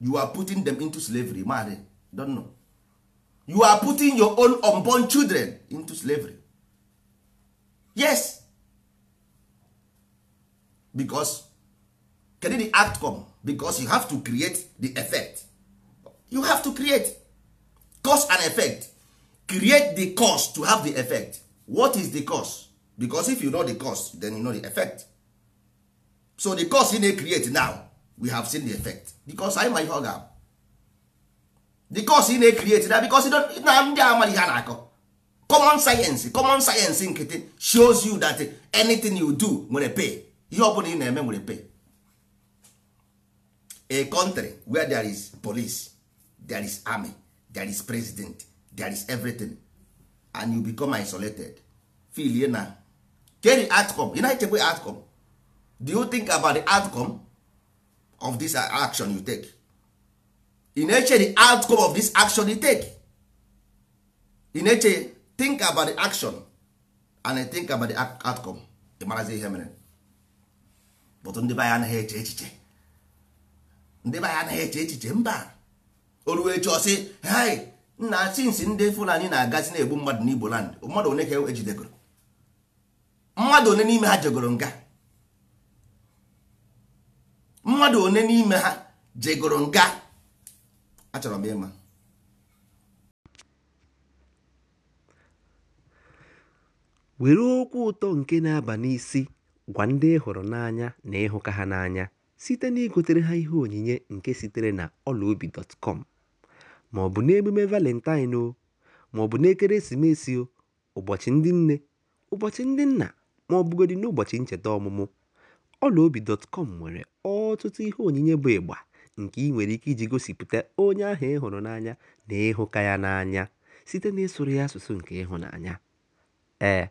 you are putting them into slavery mari don know you are putting your own unborn children into slavery yes because kedu the outcome because you have to create the effect you have to create cause and effect create the cause to have the effect what is the cause because if you know the cause then you know the effect so the cause na create now we have seen the effect because anyị ma ihe ọ ga the cause na create na because na ndị amara ihe a na-akọ common science common science nkịtị shows you that anything you do nwere pay ihe ọbụla ị na-eme nwere pay a country where there is police there is army there is president there is everything and you become isolated filie na carry outcome united na-echekwa outcome do you think about the outcome of this action you take in eche the outcome of this action you take in eche think about the action and think about the outcome ị marazi ihe mere but ndị baya anyị anaghị eche echiche ndị baya anyị anaghị eche echiche mba oruo echi ọsị hai nna sinsi ndị fulani na-agazi na-egbu mmadụ n'igbo land mmadụ one ka ejidegoro mmadụ one n'ime ha jegoro nga mmadụ one n'ime ha jegoro nga achọrọ m ịma were okwu ụtọ nke na-aba n'isi gwa ndị hụrụ n'anya na ịhụka ha n'anya site na igotere ha ihe onyinye nke sitere na ọlaobi.com ma ọ bụ n'emume valentine o ma ọ bụ n'ekeresimesi o ụbọchị ndị nne ụbọchị ndị nna ma ọ n'ụbọchị ncheta ọmụmụ ọlaobi.com nwere ọtụtụ ihe onyinye bụ ịgba nke i nwere ike iji gosipụta onye ahụ ị hụrụ n'anya na ịhụka ya n'anya site n'ịsụrụ ya asụsụ nke ịhụnanya. Ee,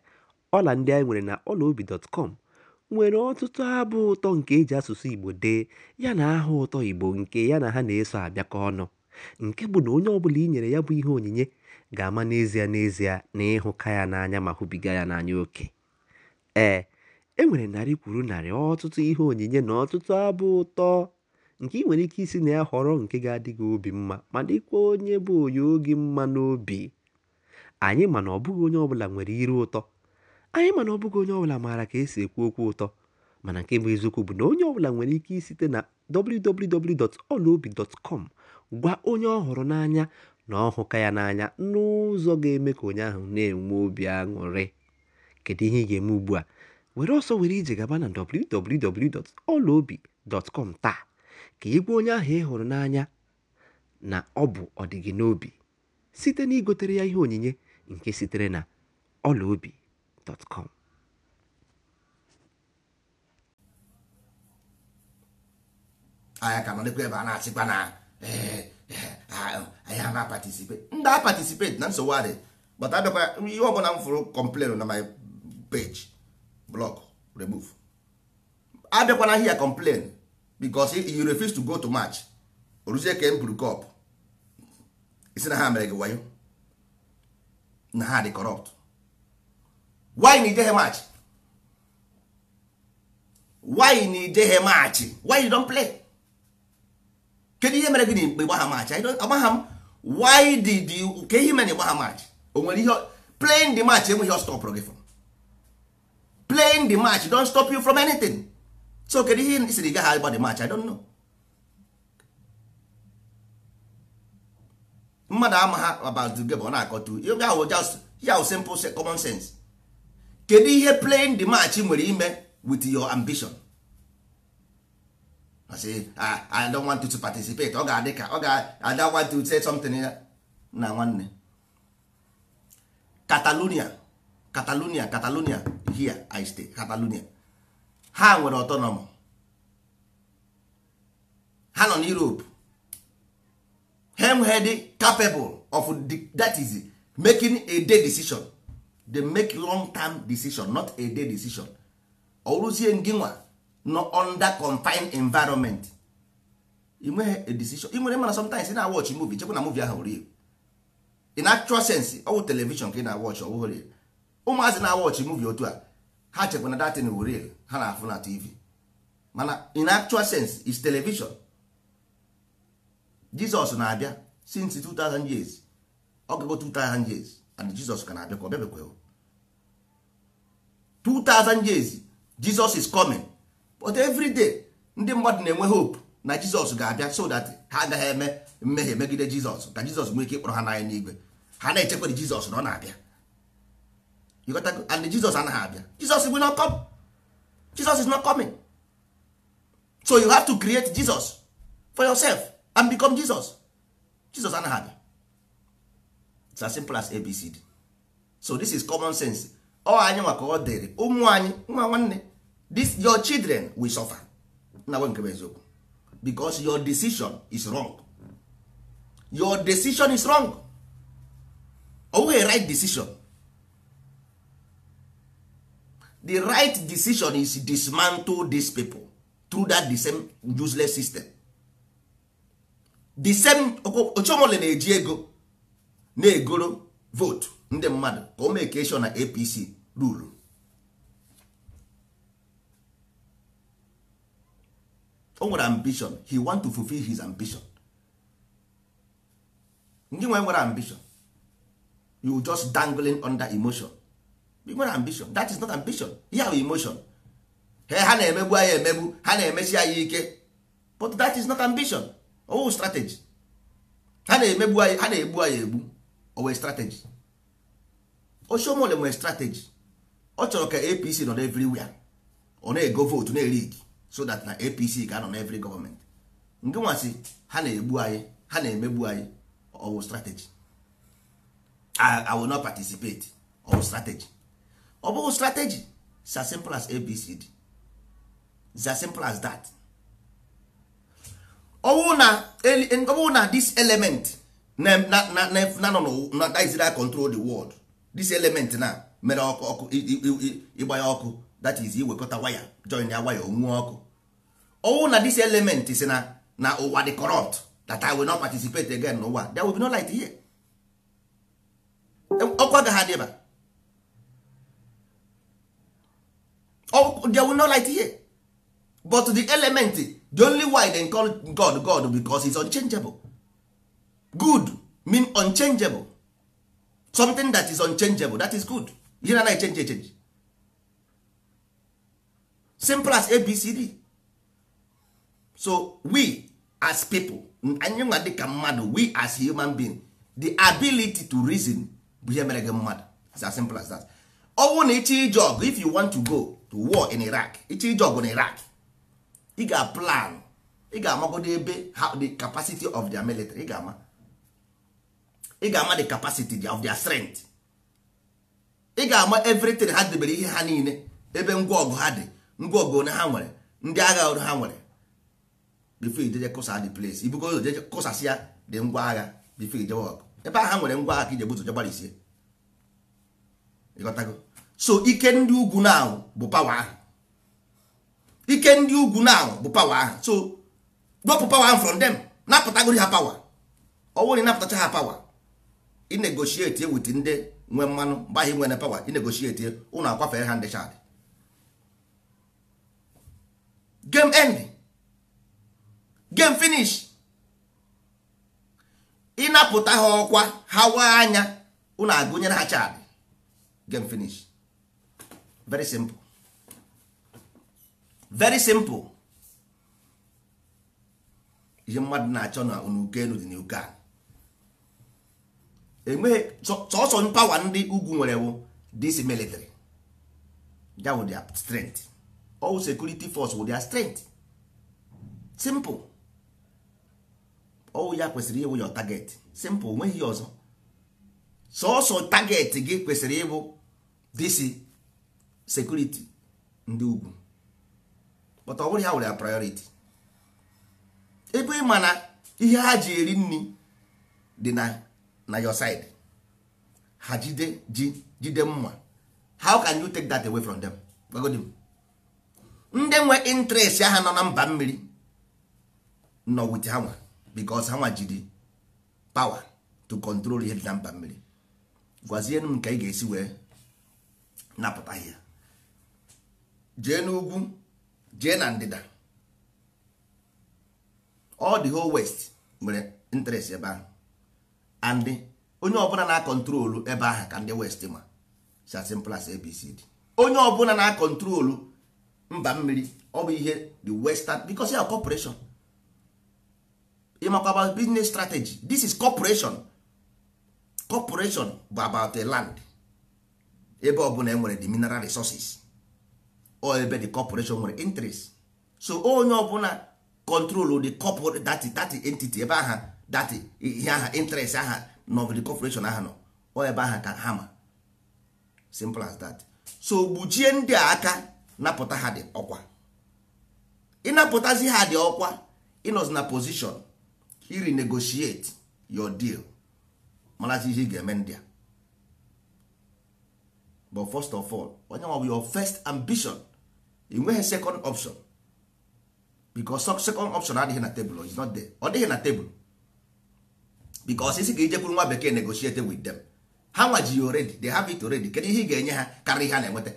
ọla ndị anyị nwere na ọlaobi.com nwere ọtụtụ abụ ụtọ nke e ji asụsụ Igbo dee ya na aha ụtọ Igbo nke ya na ha na-eso abịakọ ọnụ nke bụ na onye ọbụla i nyere ya bụ ihe onyinye ga-ama n'ezie n'ezie na ịhụka ya n'anya ma hụbiga ya n'anya oke. Ee E nwere narị kwuru narị ọtụtụ ihe onyinye na ọtụtụ abụ ụtọ nke ị nwere ike isi na ya họrọ nke ga adịghị obi mma ma dịkwa onye bụ onye oge mma n'obi anyị mana ọbụghị onye ọbụla nwere iru ụtọ anyị mana ọbụghị onye ọbụla maara ka esi ekwu okwu ụtọ mana nke bụ eziokwu bụ na onye ọbụla nwere ike isite na kọm gwa onye ọ hụrụ n'anya na ọhụka ya n'anya n'ụzọ ga-eme ka onye ahụ na-enwe obi aṅụrị kedu ihe ị ga-eme ugbu a were ọsọ were ije gaba na www.ọlaobi.com taa ka ị gwa onye ahụ ị hụrụ n'anya na ọ bụ ọdịgị n'obi site na igotere ya ihe onyinye nke sitere na ọlaobi.com anyị ka nọdekwa ebe a na-achịkwa na eh, eh, ah, anyị ama patisipeti ndị a patisipeti na nsogbu adị bata abịakwa ihe ọbụla m fụrụ kọmplenụ na my page block remove abịakwana here complain because you refuse to go to match oruzie ka buru cop isi na ha mere gị wayo na ha dị corrupt why na ijeghe match why na ijeghe match why you don play kedu ihe mere gị na mgbe gbaha match agbaha m why did you ka ihe mere na ịgbaha match o nwere ihe playing the match enweghị ọ stọpụrụ gị fọ playing the match don't stop you from anything so kedu ihe isiri gaghị agba the match i don't know mmadụ ama ha about the game ọ na-akọtu ya wụ just yaw simple common sense kedu ihe playing the match nwere ime with your ambition I say I don't want to participate ọ ga-adị ka ọ ga I don't want oh, oh, to say something na nwanne Catalonia catalonia catalonia here i stay catalonia ha nwere autonomy ha nọ n'europe hemhed capable of the, that is making a day decision they make long term decision not a day decision ọrụzie ngị nginwa nọ under confined environment nwee a decision inwere mana sometimes ị na-awọchị movie chekwa na movie ahụ rie in actual sense ọ bụ television ka ị na-awọchị ọ bụghị ụmụazị na-awọchị muvi otu a ha chekwa na datin wuril ha na-afụ na tv mana in actual sense is television jizọs na-abịa since 2000 years ọgụgụ 2000 years and jizọs ka na-abịa ka ọ bịabekwe 2000 years jizọs is coming but every day ndị mmadụ na-enwe hope na jizọs ga-abịa so that ha agaghị eme mmehie megide jizọs ka jizọs nwee ike ịkpọrọ ha n'anya n'igwe ha na-echekwere jizọs na ọ na-abịa you got to, and Jesus anaghị abịa Jesus will not come Jesus is not coming so you have to create Jesus for yourself and become Jesus Jesus anaghị abịa it's as simple as ABCD so this is common sense ọ anyị maka ọ dịrị ụmụ anyị nwa nwanne this your children will suffer na nwe nke eziokwu because your decision is wrong your decision is wrong ọ bụghị right decision the right decision is dismantle these people through that the same useless system the same ochomole na-eji ego na-egoro vote ndị mmadụ ka o make na apc ruru o nwere ambition he want to fulfill his ambition ndị nwe nwere ambition you just dangling under emotion ị nwere ambition that is not ambition ihe bụ emotion ha na-emegbu anyị emegbu ha na-emesi anyị ike but that is not ambition owu oh, strategy ha na-emegbu anyị ha na-egbu anyị egbu owe strategy oshomole nwere strategy ọ chọrọ ka apc nọ everywhere ọ na-ego votu na-erid so that na apc ga-anọ na every gọọmenti nke nwasị ha na-egbu anyị ha na-emegbu anyị owu strategy i will not participate owu strategy ọ bụghị strategy za as simple as abcd za as simple as that ọwụ na ọwụ na this element na na na na na that is control the world this element na mere ọkụ ọkụ ịgba ya ọkụ that is iwekọta waya join ya waya onwuo ọkụ ọwụ na this element si na na ụwa dị corrupt that I will not participate again n'ụwa there will be no light here ọkụ agaghị adịba Oh, there will no light here but the element the only why they call god god because is unchangeable good mean unchangeable something that is unchangeable that is good you na change change simple as abcd so we as people anyị nwa mmadụ we as human being the ability to reason bụ ihe mere gị mmadụ as simple as that ọ bụrụ na ije ọgụ if you want to go to war in iraq ịchọ ije ọgụ na iraq ị ga-plan ị ga-amagodo ebe the capacity of their military ị ga-ama ị ga-ama the capacity of their strength ị ga-ama everything ha debere ihe ha niile ebe ngwa ọgụ ha dị ngwa ọgụ one ha nwere ndị agha ọrụ ha nwere before ijeje kụsa the place ibugo ụzọ jeje kụsasị ya dị ngwa agha before ijewe ọgụ ebe ahụ ha nwere ngwa agha ka ije buzo je gbarisie so ike ndị ugwu na bụ pawa ahụ ike ndị ugwu na bụ pawa ahụ so wepụ pawa ahụ from them napụtagori ha pawa ọwụrụ ịnapụtacha ha pawa inegoshietie wit ndị nwe mmanụ gbaghị nwere pawa inegoshietie ụnụ akwafere ha ndị chadị game end game finish ịnapụta ha ọkwa ha waa anya ụnụ agụnyere ha chadị game finish very simple very simple ihe mmadụ na-achọ na n'uke elu dị n'uke a enweghị sọsọ mpawa ndị ugwu nwere bụ dis military that would their strength sekuriti security force would their strength simple ọwụ ya kwesịrị ịwụ ya target simple nweghị ọzọ sọsọ target gị kwesịrị ịbụ disi sekuriti ndị ugwu but ọ ya nwere ya priority ebe ị na ihe ha ji eri nri dị na na your side ha jide ji jide mma how can you take that away from them gbagodi m ndị nwe interest ahụ nọ na mba mmiri nọ wit ha nwa because ha nwa jide pawa to control ihe dị na mba mmiri gwazie m nke ị ga-esi wee napụta ihe jee n'ugwu jee na ndịda all the whole west nwere interest ebe ahụ and onye ọbụla na-akọntrolu ebe ahụ ka ndị west ma si as simple abcd onye ọbụla na-akọntrolu mba mmiri ọ bụ ihe the western because ya corporation ịmakwa about business strategy this is corporation corporation bụ about a land ebe ọbụla e nwere the mineral resources or ebe the corporation nwere interest so onye ọbụla control the corporate that that entity ebe aha that ihe aha interest aha nọ the corporation aha nọ ọ ebe aha ka ha ma simple as that so gbuchie ndị a aka napụta ha dị ọkwa ịnapụtazi ha dị ọkwa ịnọzi na position iri negotiate your deal marazi ihe ị ga-eme ndị a but first of all onye nwa bụ your first ambition i nweghị second option because second option adịghị na tebụl is not there ọ dịghị na tebụl because isi ka ijekwuru nwa bekee negotiate with them ha nwa ji already they have it already kedu ihe ị ga-enye ha karịa ihe ha na-enweta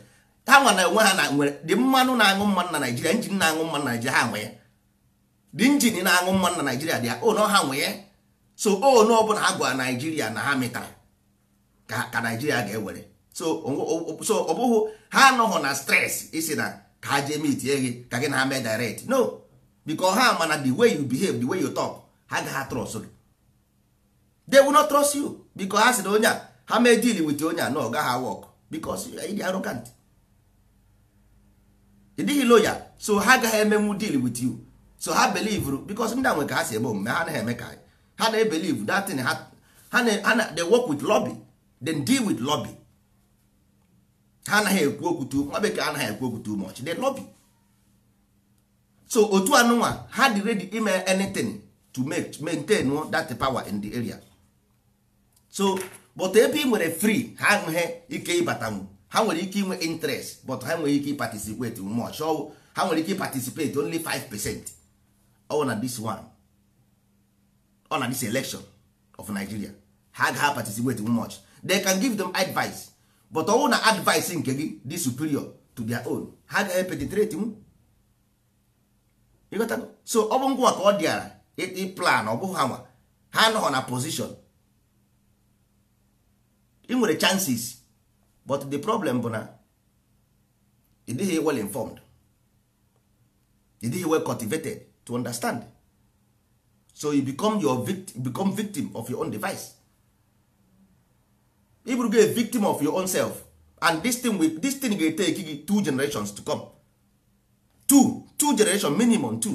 ha nwa na enwe ha na nwere dị mmanụ na-aṅụ mmanụ na naijiria injin na-aṅụ mmanụ na naijiria ha nwe ya dị injin na-aṅụ mmanụ na naijiria dị ya o na ha nwe ya so o na ọbụla ha gwara naijiria na ha metara ka naijiria ga-ewere so ọ bụghị ha anọghị na stress isi na ka ha jee mitie gị ka gị na ha mee direct no because ha mana the way you behave the way you talk ha gaghị trust gị they will not trust you because ha sị na onye a ha mee deal with onye a na ọ gaghị work because ị dị arrogant ị dịghị loya so ha agaghị emenwu deal with you so ha believe because ndị a nwe ka ha si eme omume ha anaghị eme ka ha na-ebelieve that thing ha na they work with lobby then deal with lobby ha anaghị ekwu okwu tu nwa bekee anaghị ekwu okwu too much they lobby so otu anụnwa ha dị ready ime anything to make maintain that power in the area so but ebe ị nwere free ha nweghị ike ịbatanwu ha nwere ike inwe interest but ha nwere ike participate much ọ ha nwere ike participate only 5 percent ọ na this one ọ na this election of Nigeria ha agaghị participate much they can give them advice but ọnwụ na advice nke gị dị superior to their own ha agaghị penetrate m so ọ bụ ngwa ka ọ dịara plan ọ bụghị ha nwa ha nọ na position ị nwere chances but the problem bụ na ị dịghị well informed ị dịghị well cultivated to understand so you become your victim, become victim of your own device ịbụrụgo a victim of your own self and this thing will, this thing ga take gị two generations to come two two generation minimum two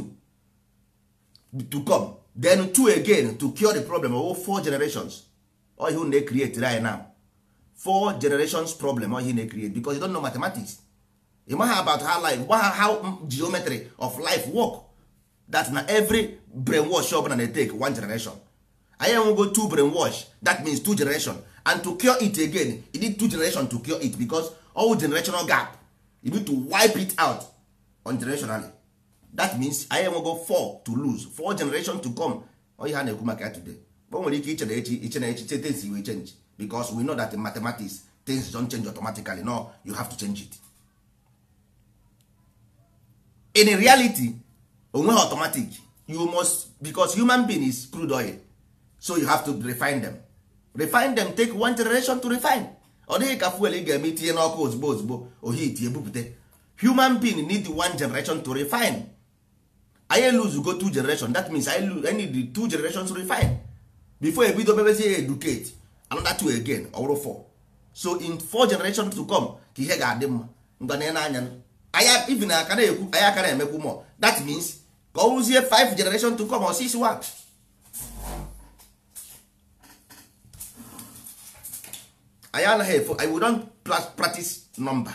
to come then two again to cure the problem of four generations oh you na create right now four generations problem oh you na create because you don't know mathematics you maha about how life how geometry of life work that na every brainwash ọbụla na take one generation anyị go two brainwash that means two generation and to cure it again you need two generations to cure it because all generational gap you need to wipe it out on generationally that means anyị enwego four to lose four generation to come onye ha na-ekwu maka ya today o nwere ike iche na echi iche na echi che things will change because we know that in mathematics things don change automatically no you have to change it in reality onweghị automatic you must because human being is crude oil so you have to refine them refine them take one generation to refine ọ dịghị ka fuel ị ga-eme itinye n'ọkụ ozugbo ozugbo ohi iti ebupụte human being need one generation to refine anyị go two generation that means I need two generations to refine before ebido mebezie educate another two again ọ four so in four generations to come ka ihe ga-adị mma ngwa na n'anya anya even ekwu anyị akara emekwu mọ that means ka ọ rụzie five generation to come or six one anyị anaghị efo we don practice number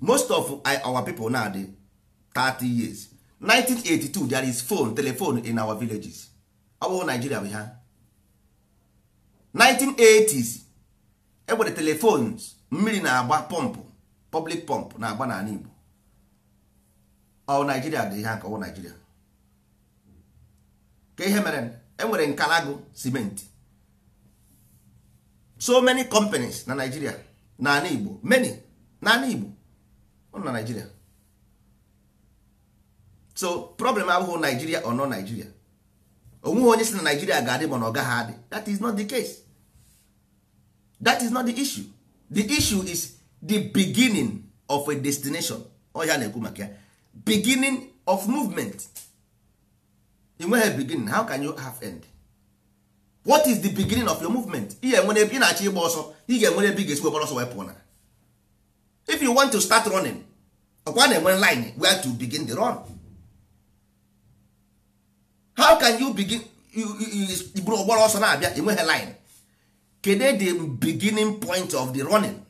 most of our people now dị 30 years 1982 there is phone telephone in our villages ọ Nigeria bụ ha 1980s enwere telephones mmiri na-agba pọmpụ public pump na-agba n'ala Igbo ọ Nigeria dị ha ka Nigeria ka ihe mere enwere nkalago simenti so many companies na Nigeria na ala Igbo many na ala Igbo ọ na Nigeria so problem abụghị Nigeria or no Nigeria onweghị onye si na Nigeria ga-adị na ọ gaghị adị that is not the case that is not the issue the issue is the beginning of a destination ọya na-ekwu maka ya beginning of movement enweghị beginning how can you have end? what is the beginning of your movement ị ga-enwere ebe ị na-achọ ịgba ọsọ ị ga-enwere ebe ị ga-esi wepụrụ ọsọ wepụ na if you want to start running ọkwa na enwe line where to begin the run how can you begin buru ọgbara ọsọ na-abịa enweghị line kedu the beginning point of the running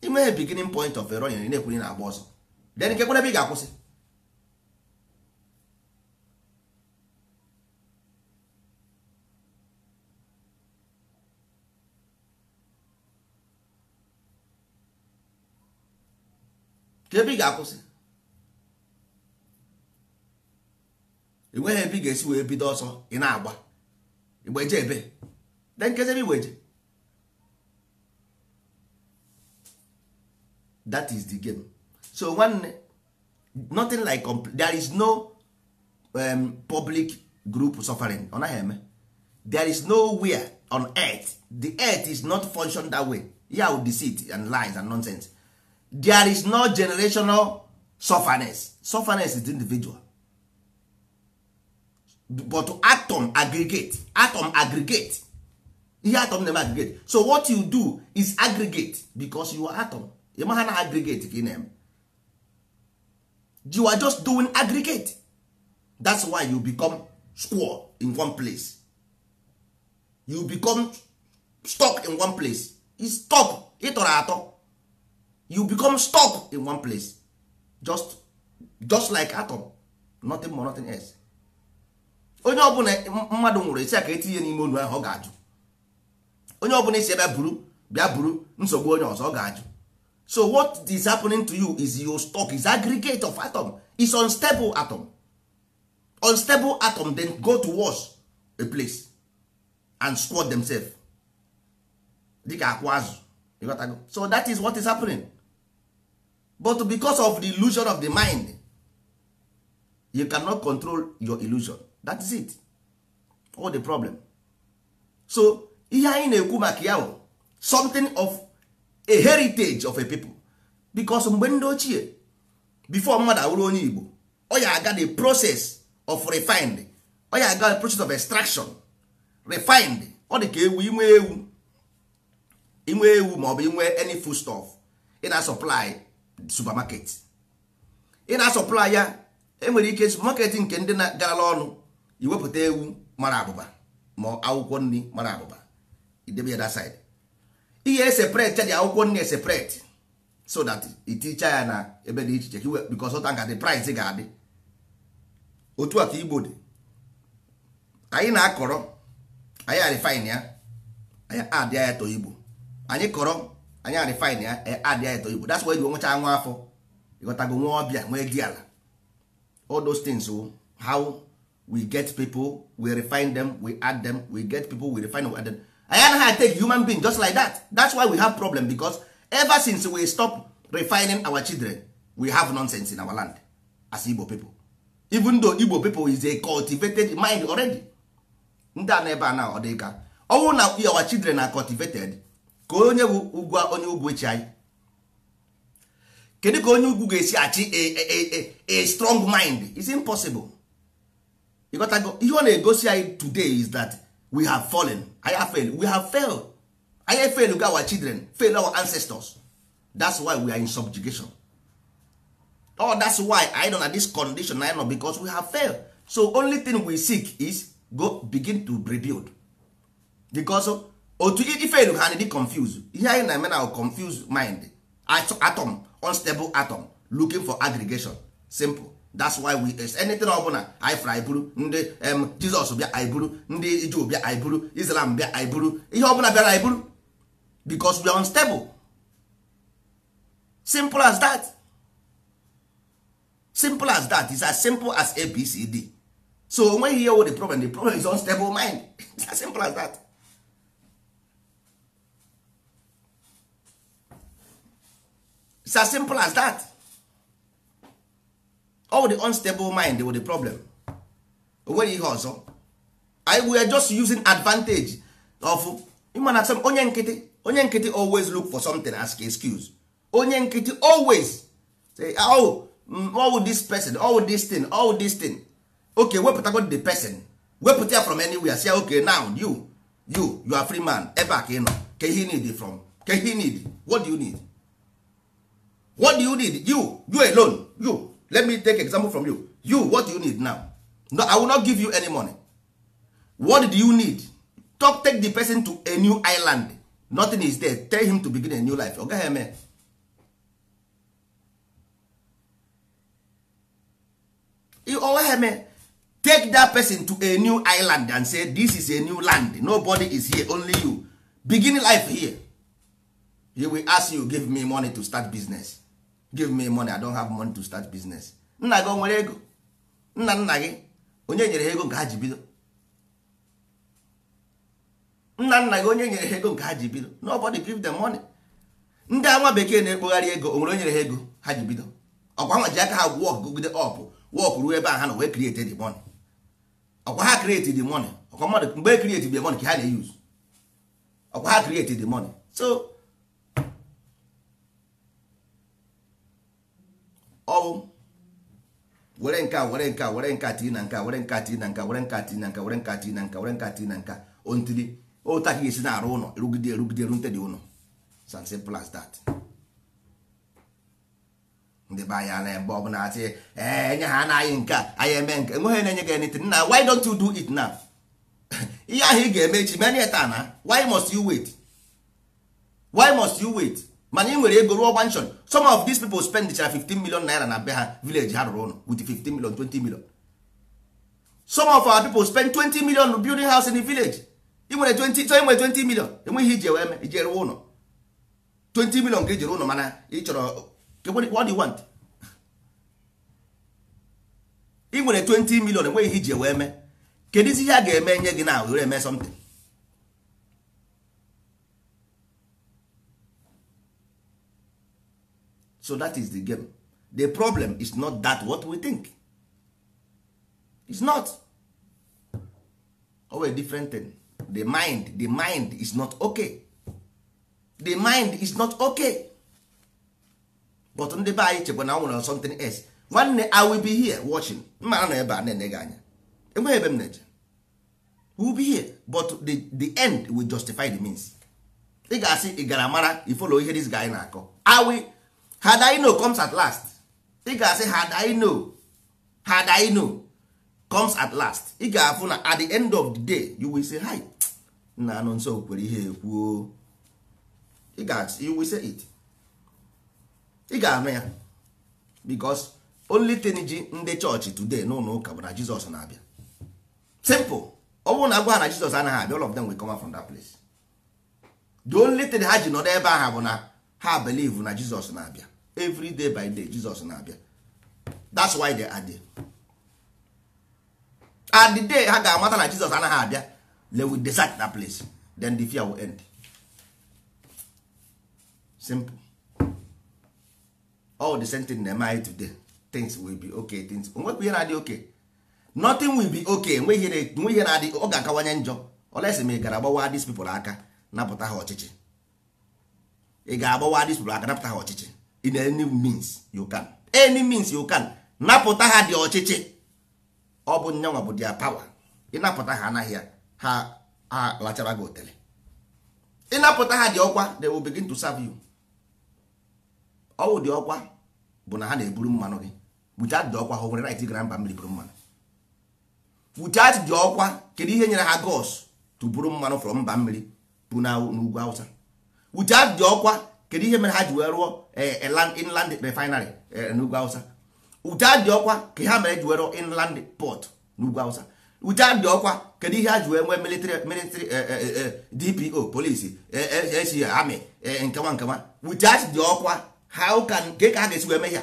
enweghị beginning point of the running na-ekwuri na-agba ọsọ then kekwere ebe ị ga-akwụsị ebe ị ga-akwụsị enweghị ebe ị ga-esi wee bido ọsọ ị na-agba igbeje ebe de nkezebe igbeje that is the game so nwanne nothing like there is no um, public group suffering ọ naghị eme there is nowhere on earth the earth is not function that way ya yeah, deceit and lies and nonsense there is no generational sufferness sufferness is individual but atom aggregate atom aggregate ihe atom na-eme aggregate so what you do is aggregate because you are atom ma ha na aggregate ka ị na you are just doing aggregate that's why you become square in one place you become stuck in one place is stuck ịtọrọ atọ you become stuck in one place just just like atom nothing more nothing else onye ọbụla mmadụ nwụrụ esi aka etinye n'ime onu ahụ ọ ga-ajụ onye ọbụla isi ebe buru bịa buru nsogbu onye ọzọ ọ ga-ajụ so what is happening to you is your stock is aggregate of atom is unstable atom unstable atom then go to wash a place and squat themselves dịka akwụ azụ so that is what is happening. but because of the illusion of the mind you cannot control your illusion that is it all the problem so ihe anyị na-ekwu maka ya bụ something of a heritage of a people because mgbe ndị ochie before mmadụ awụrụ onye Igbo ọ aga the process of refined ọ ya aga the process of extraction refined ọ dị ka ewu inwe ewu inwe ewu maọbụ inwe any food stuff ị na supply supermarket ị na-asọpụla ya enwere ike supermarket nke ndị na-garala ọnụ iwepụta ewu mara abụba ma akwụkwọ nri mara abụba idebe ya that side ihe eseprete dị akwụkwọ nri eseprete so that iticha ya na ebe dị iche iche because ọta nga the price ga-adị otu a ka igbo dị anyị na-akọrọ anyị arifine ya anyị adịa ya to igbo anyị kọrọ anya arịfine ya e adị ya eto igbo that's why ji nwecha nwa afọ ịghọtago nwa ọbịa nwee dị ala all those things oh, how we get people we refine them we add them we get people we refine them, we add them. anyị anaghị take human being just like that that's why we have problem because ever since we stop refining our children we have nonsense in our land as igbo people even though igbo people is a cultivated mind already ndị a na ebe a na ọ ọnwụ na our children are cultivated ka onye bụ ugwa onye ugwu echi anyị kedu ka onye ugwu ga-esi achị a strong mind is impossible If ihe ọ na-egosi anyị today is that we have fallen I have failed we have failed I fail failed our children fail our ancestors that's why we are in subjugation oh that's why I don know this condition I know because we have failed so only thing we seek is go begin to rebuild because otu ifelu ha dị confuse ihe anyị na-eme na confuse mind atom unstable atom looking for aggregation simple that's why we is eh, anything ọbụla anyị fụrụ nde ndị em jizọs bịa anyị bụrụ ndị Jew bịa anyị islam bịa anyị bụrụ ihe ọbụla bịara anyị because we are unstable simple as that simple as that is as simple as abcd so onweghị ihe wo the problem the problem is unstable mind it's as simple as that it's as simple as that all the unstable mind wụ the problem wey nweghị ihe ọzọ we are just using advantage of ịmana some onye nkịtị onye nkịtị always look for something ask excuse onye nkịtị always say oh mm, all this person all this thing all this thing okay wepụtago the person wepụta ya from anywhere say okay now you you you are free man ebe a ka ị nọ ka ihe need from ka ihe need what do you need what do you need you you alone you let me take example from you you what do you need now no, i will not give you any money what do you need talk take the person to a new island nothing is there tell him to begin a new life oga eme ogaghị oh, eme take that person to a new island and say this is a new land nobody is here only you begin life here he will ask you give me money to start business give me money i don't have money to start business nna gị o nwere ego nna nna gị onye nyere ha ego nke ha ji bido nna nna gị onye nyere ha ego nke ha ji bido nobody give them money ndị ama bekee na-ekpogharị ego onwere nwere onye nyere ha ego ha ji bido ọkwa nwa ji aka ha wọk gogide ọp wọk ruo ebe ahụ ha na wee kriete the money ọkwa ha kriete the money ọkwa mmadụ mgbe kriete e the money ka ha na-eyuz ọkwa ha kriete the money so ọwụ were nka were nka were nka tii na nka were nka tii na nka were nka tii na nka were nka tii na nka were nka tii na nka ontiri ụta ka esi na-arụ ụlọ erugide erugide erute dị ụlọ san simple as that ndị be anyị ana ebe ọbụla Ee enye ha anaghị nke anyị eme nke enweghị na-enye gị anything na why don't you do it now ihe ahụ ị ga-eme echi many taa na why must you wait why must you wait mana ị nwere ego ruo gwanshon some of these people spend chara 15 million naira na be ha village ha rụrụ ụlọ with 15 million 20 million some of our people spend 20 million building house in the village ị nwere 20 so ị nwere 20 million enweghị iji ewe eme ije rụọ ụlọ 20 million ka jiri ụlọ mana ị chọrọ what do you want ị nwere 20 million enweghị iji ewe eme kedụ isi ihe a ga-eme nye gị na were eme something so that is the game the problem is not that what we think is not oh, always different thing the mind the mind is not okay the mind is not okay but ndị be anyị chekwa na ọ nwere something else nwanne i will be here watching mma na ebe a na-ene gị anya enweghị ebe m na-eje will be here but the, the end will justify the means ị ga-asị ị gara mara ifolo ihe dis guy na-akọ had I know comes at last ị ga-asị had I know had I know comes at last ị ga-afụ na at the end of the day you will say hi na anụ nsọ kwere ihe ekwuo ị ga you will say it ị ga-ama ya because only thing ji ndị chọọchị today n'ụlọ ụka bụ na Jizọs na-abịa simple ọ bụrụ na agwa na Jizọs anaghị abịa all of them will come from that place the only thing ha ji nọ n'ebe ahụ bụ na ha belief na jizọs na-abịa every day by day jizọs na-abịa that's why they are there. at the day ha ga-amata na jizọs anaghị abịa they will decide that place then the fear will end simple all the same thing na-eme today things will be okay things onwekwa ihe na-adị okay nothing will be okay nwe ihe na-adị ọ ga-akawanye njọ olesi ma ị gara gbawa these people aka napụta ha ọchịchị ị ga-agbawa dị sụrụ aka napụta ha ọchịchị in any means you can any means you can napụta ha dị ọchịchị ọ bụ nyanwa bụ dia pawa ịnapụta ha anaghị ya ha lachara gị otele ịnapụta ha dị ọkwa the will begin to serve you ọwụ dị ọkwa bụ na ha na-eburu mmanụ gị buchat dị ọkwa ha nwere right gara mba mmiri buru mmanụ buchat dị ọkwa kedu ihe nyere ha gos to buru mmanụ from mba mmiri bụ na ugwu awụsa without dị ọkwa kedu ihe mere ha ji wee rụọ e, e, inland refinery e, n'ugwu awụsa without dị ọkwa ka ha mere ji wee rụọ inland port n'ugwu awụsa without dị ọkwa kedu ihe ha ji wee nwee military military dpo polisi esi amị nkewa nkewa without dị ọkwa ha ụka nke ka ha ga-esi wee mee ya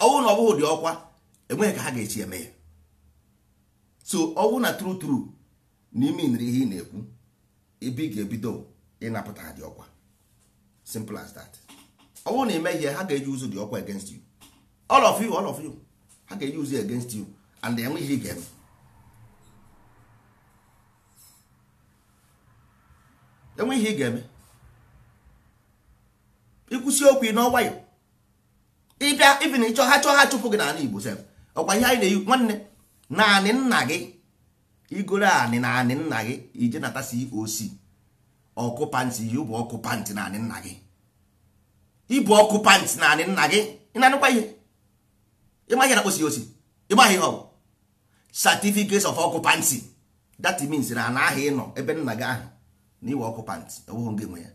ọnwụ na ọbụghị dị ọkwa enweghị ka ha ga-esi eme ya so ọnwụ na tru tru n'ime nri ihe ị na-ekwu ebe ị ga-ebido ịnapụta ha dị ọkwa simple as that ọ bụrụ na ime ihe ha ga-eji ụzụ dị ọkwa against you all of you all of you ha ga-eji ụzụ against you and enwe ihe ị ga-eme enwe ihe ị ga-eme ikwụsị okwu n'ọnwa ya ịbịa ibi na ịchọ ha chọọ ha chụpụ gị n'ala Igbo sef ọkwa ihe anyị na-eyi nwanne naanị nna gị igoro anị naanị nna gị ije n'atasi COC ọkụpantị ihe bụ ọkụpantị naanị nna gị ịbụ ọkụpantị naanị nna gị ị na-anụkwa ihe ịma ihe na kposi osi ịmaghị ihe ọ bụ certificates of ọkụpantị that means na anaghị ịnọ ebe nna gị ahụ na iwe ọkụpantị ewughị ngị nwe ya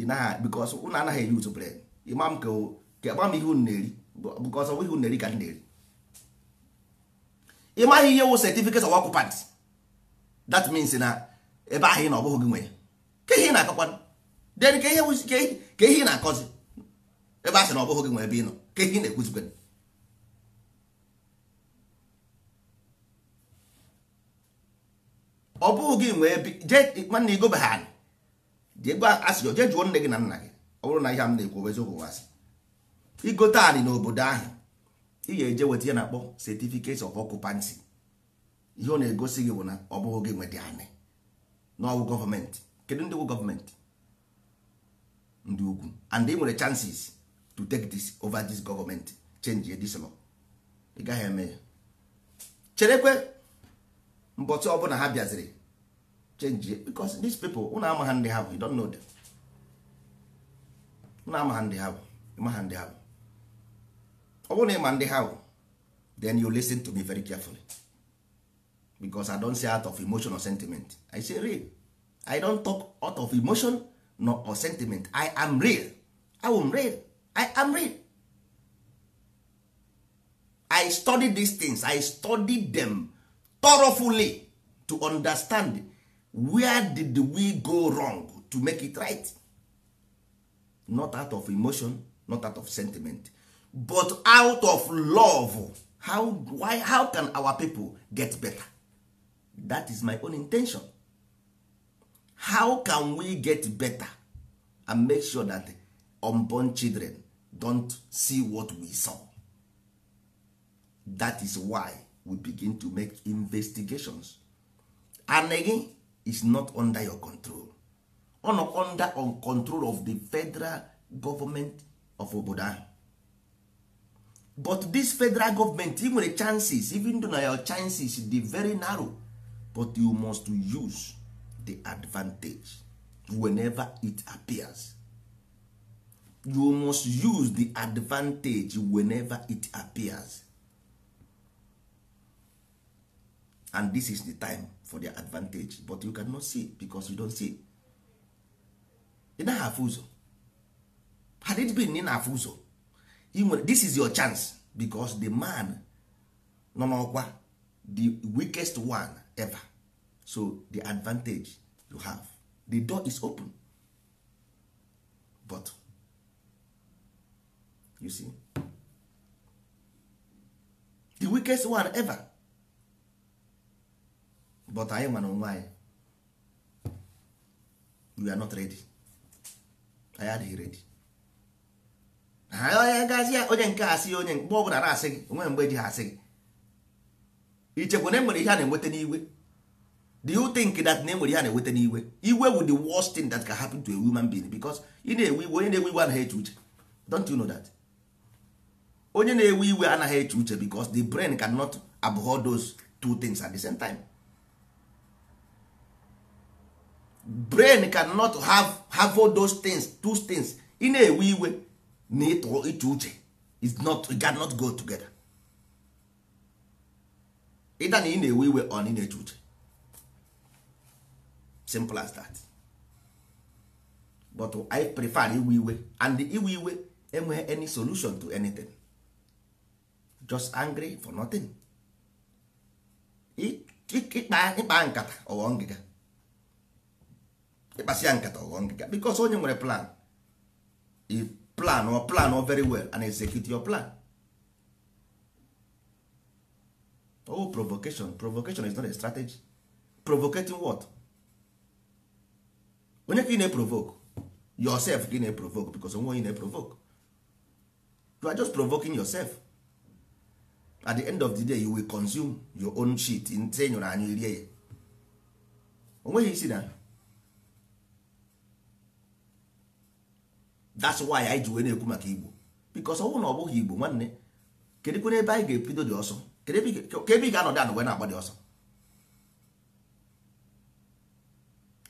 ịnaghị bikos ụnụ anaghị eri utu bred ịma m ka agba m ihe unu na-eri bikos ọ ihe unu na-eri ka m na-eri ịmaghị ihe wụ certificates of ọkụpantị that na ebe ahụ ị na ọbụghị gị nwe ya ka ihe ị na-akọkwanụ den ka ihe ka ị na-akọzi ebe ahụ sị na ọbụghị gị nwe ebe ị nọ ka ihe ị na-ekwuzikwanụ ọ bụghị gị nwe ebe jee nwanne igobe ha anyị jee gwa asịrị jee jụọ nne gị na nna gị ọ bụrụ na ihe m na-ekwu eziokwu wasị igote anyị n'obodo ahụ ị ga-eje weta ya na-akpọ certificate of ọkụpansi ihe ọ na-egosi gị bụ na ọ bụghị gị nweta anyị n'ọwụ gọọmenti kedu ndị wụ gọọmenti ndị ugwu and ị nwere chances to take this over this gọọmenti change ye this law ị gaghị eme ya cherekwe mbọtụ ọbụla ha bịaziri change ye because these people una amaha ha ndị ha bụ you don't know them una ama ha ndị ha bụ ịma ha ndị ha bụ ọ bụrụ na ịma ndị ha bụ then you listen to me very carefully because i don say out of emotion or sentiment i say real i don talk out of emotion or sentiment i am real i am real i am real i study these things i study them thoroughly to understand where did we go wrong to make it right not out of emotion not out of sentiment but out of love how, why, how can our people get better that is my own intention how can we get better and make sure that unborn children don't see what we saw that is why we begin to make investigations and again is not under your control or under on control of the federal government of obodo but this federal government even nwere chances even though na your chances dey very narrow but you must use the advantage whenever it appears you must use the advantage whenever it appears and this is the time for the advantage but you cannot see because you don't see ị naghị afụ ụzọ had it been nina na-afụ ụzọ this is your chance because the man nọ n'ọkwa the weakest one ever so the advantage you have the door is open but you see the weakest one ever but anyị nwere onwe anyị we are not ready anyị adịghị redi ha onye gazi onye nke asị onye mgbe ọ bụla na-asị gị onwe mgbe ji ha asị gị ichekwa na enwere ihe a na-enweta n'iwe do you think that na enwere ihe a na-enweta n'iwe iwe wu the worst thing that can happen to a human being because ị na-ewe iwe onye na-ewe iwe anaghị eche uche don't you know that onye na-ewe iwe anaghị eche uche because the brain cannot abhor those two things at the same time brain cannot have have all those things two things ị na-ewe iwe na ịtụ iche uche is not it cannot go together ịda na ị na-ewe iwe ọ na ị na-eche uche simple as that but I prefer iwe iwe and iwe iwe enweghị any solution to anything just angry for nothing ịkpa nkata ọghọ ngịga ịkpasị ya nkata ọghọ ngịga because onye nwere plan i plan or plan very well and execute your plan oh provocation provocation is not a strategy provocating what onye ka ị na-eprovoke yourself ka ị na-eprovoke because onwe onye na-eprovoke you are just provoking yourself at the end of the day you will consume your own shit nte nyụrụ anyị rie ya onweghị isi na that's why i ji wee na-ekwu maka igbo because ọ na ọ bụghị igbo nwanne kedụ ebe anyị ga-ebido dị ọsọ ka ebe ị ga-anọdụ anụ na-agba ọsọ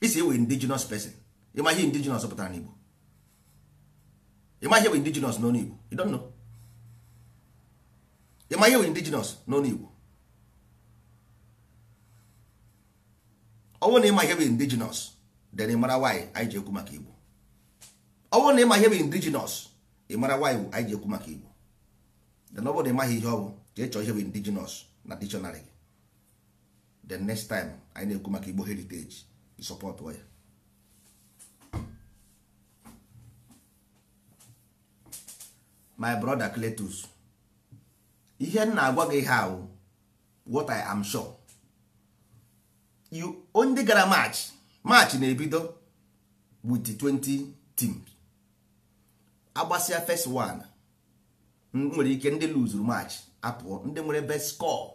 isi ewe indigenous person ịma ihe indigenous pụtara n'Igbo ịma ihe we indigenous n'ọnụ Igbo you don't know ịma ihe we indigenous n'ọnụ Igbo ọwụ na ịma ihe we indigenous then ị nwanyị anyị ji ekwu maka Igbo ọwụ na ịma ihe we indigenous ị nwanyị why anyị ji ekwu maka Igbo then ọ na ịmaghị ihe ọ bụ jee chọọ ihe bụ indigenous na dictionary the next time anyị na-ekwu maka igbo heritage support ya my brother Cletus ihe m na-agwa gị how what I am sure you gara march march na-ebido with 20 teams agbasịa first one nwere ike ndị luzuru march apụọ ndị nwere best score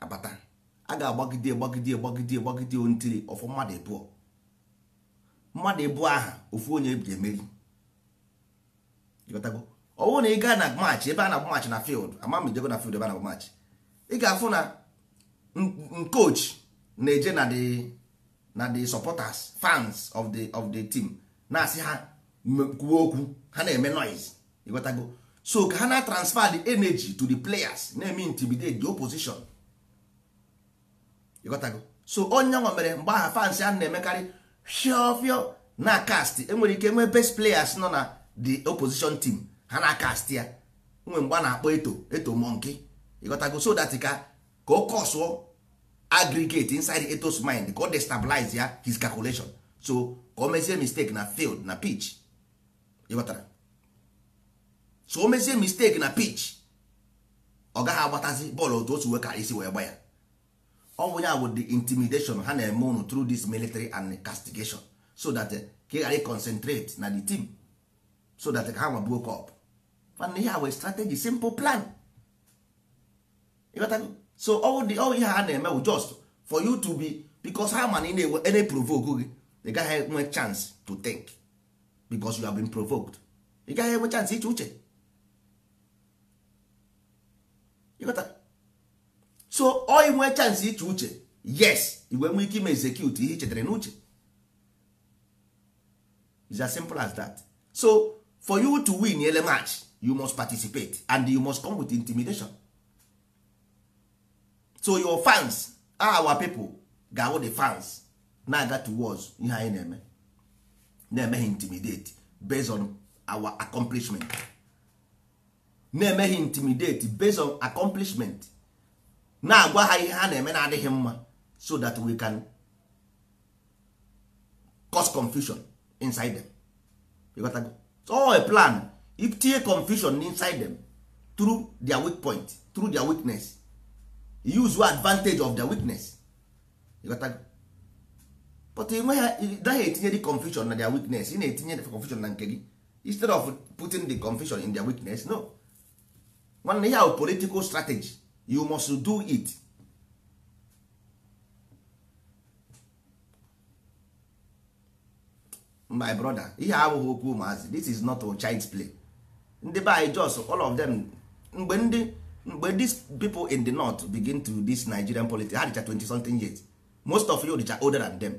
abata a ga-agbagide agbagide agbagide agbagide ntiri ọfụ mmadụ ịbụọ mmadụ ịbụọ aha ofu onye ga-emeri ọ bụrụ na ị gaa na match ebe a na match na field ama m na field ebe a na match ị ga-afụ na coach na-eje na the na the supporters fans of the of the team na-asị ha kwuo okwu ha na-eme noise ịghọtago so ka ha na transfer the energy to the players na-eme intimidate the opposition ịghọtago so onye nwa mere mgbe aha fans a na-emekarị fiofio na cast enwere ike nwee best players nọ na the opposition team ha na cast ya nwe mgbe a na-akpọ eto eto monkey ịghọtago so that ka ka o kọsụọ aggregate inside eto's mind ka o destabilize ya his calculation so ka o mezie mistake na field na pitch ịghọtara so o mezie mistake na pitch ọ gaghị agbatazi bọọlụ otu otu wee isi wee gba ya ọ bụ ya bụ the intimidation ha na-eme unu through this military and castigation so that eh, ka ị ghara concentrate na the team so that eh, ka ha nwa buo kọp mana ihe a wee strategy simple plan so all the all ihe ha na-eme just for you to be because ha ị na-ewe ene provoke gị ị gaghị enwe chance to think because you have been provoked ị gaghị enwe chance iche uche so ọ inwe chansị iche uche yes igwe nwee ike ime execute ihe ichetara n'uche it's as simple as that so for you to win ele match you must participate and you must come with intimidation so your fans our pipo ga-awụ the fans na-aga towards ihe anyị na-eme na-emeghị intimidate based on our accomplishment na-emeghị intimidate based on accomplishment na-agwa ha ihe ha na-eme na-adịghị mma so that we can cause confusion inside them you got to go. so oh, a plan if tie confusion inside them through their weak point through their weakness use your advantage of their weakness you got to go. but enweghị daghị etinye the confusion na their weakness ị na-etinye confusion na nke gị instead of putting the confusion in their weakness no nwanne ya bụ political strategy you must do it my brother ihe abụghị okwu ụmụazị this is not a child's play ndị be anyị just all of them mgbe ndị mgbe these people in the north begin to this Nigerian politics ha dịcha 20 something years most of you dịcha older than them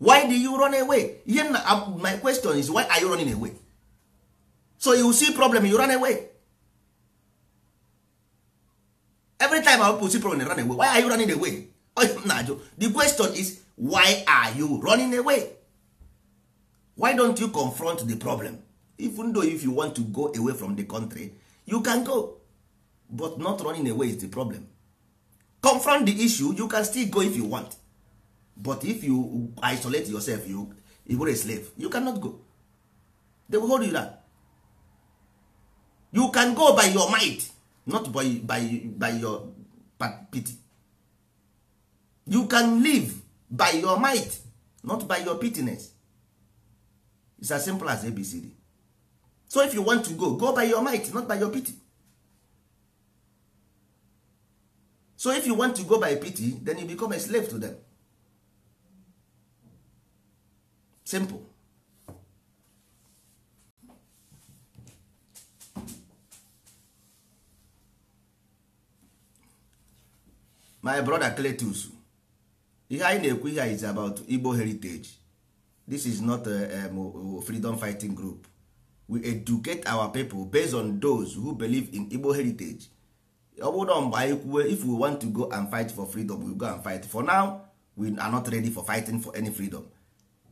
why do you run away my question is why are you running away so you see problem you run away time our pussy problem run away why are you running away oh, na-ajụ the question is why are you running away why don't you confront the problem even though if you want to go away from the country you can go but not running away is the problem confront the issue you can still go if you want but if you isolate yourself you you a slave you cannot go they will hold you down you can go by your might not by, by, by your pity you can live by your might not by your pitiness It's as simple as abcd so if you want to go go by your might not by your pity so if you want to go by pity then you become a slave to them simple my brother Cletus ihe anyị na-ekwu ihe is about Igbo heritage this is not a, um, freedom fighting group we educate our people based on those who believe in Igbo heritage ọ bụrụ na mgbe anyị kwuwe if we want to go and fight for freedom we go and fight for now we are not ready for fighting for any freedom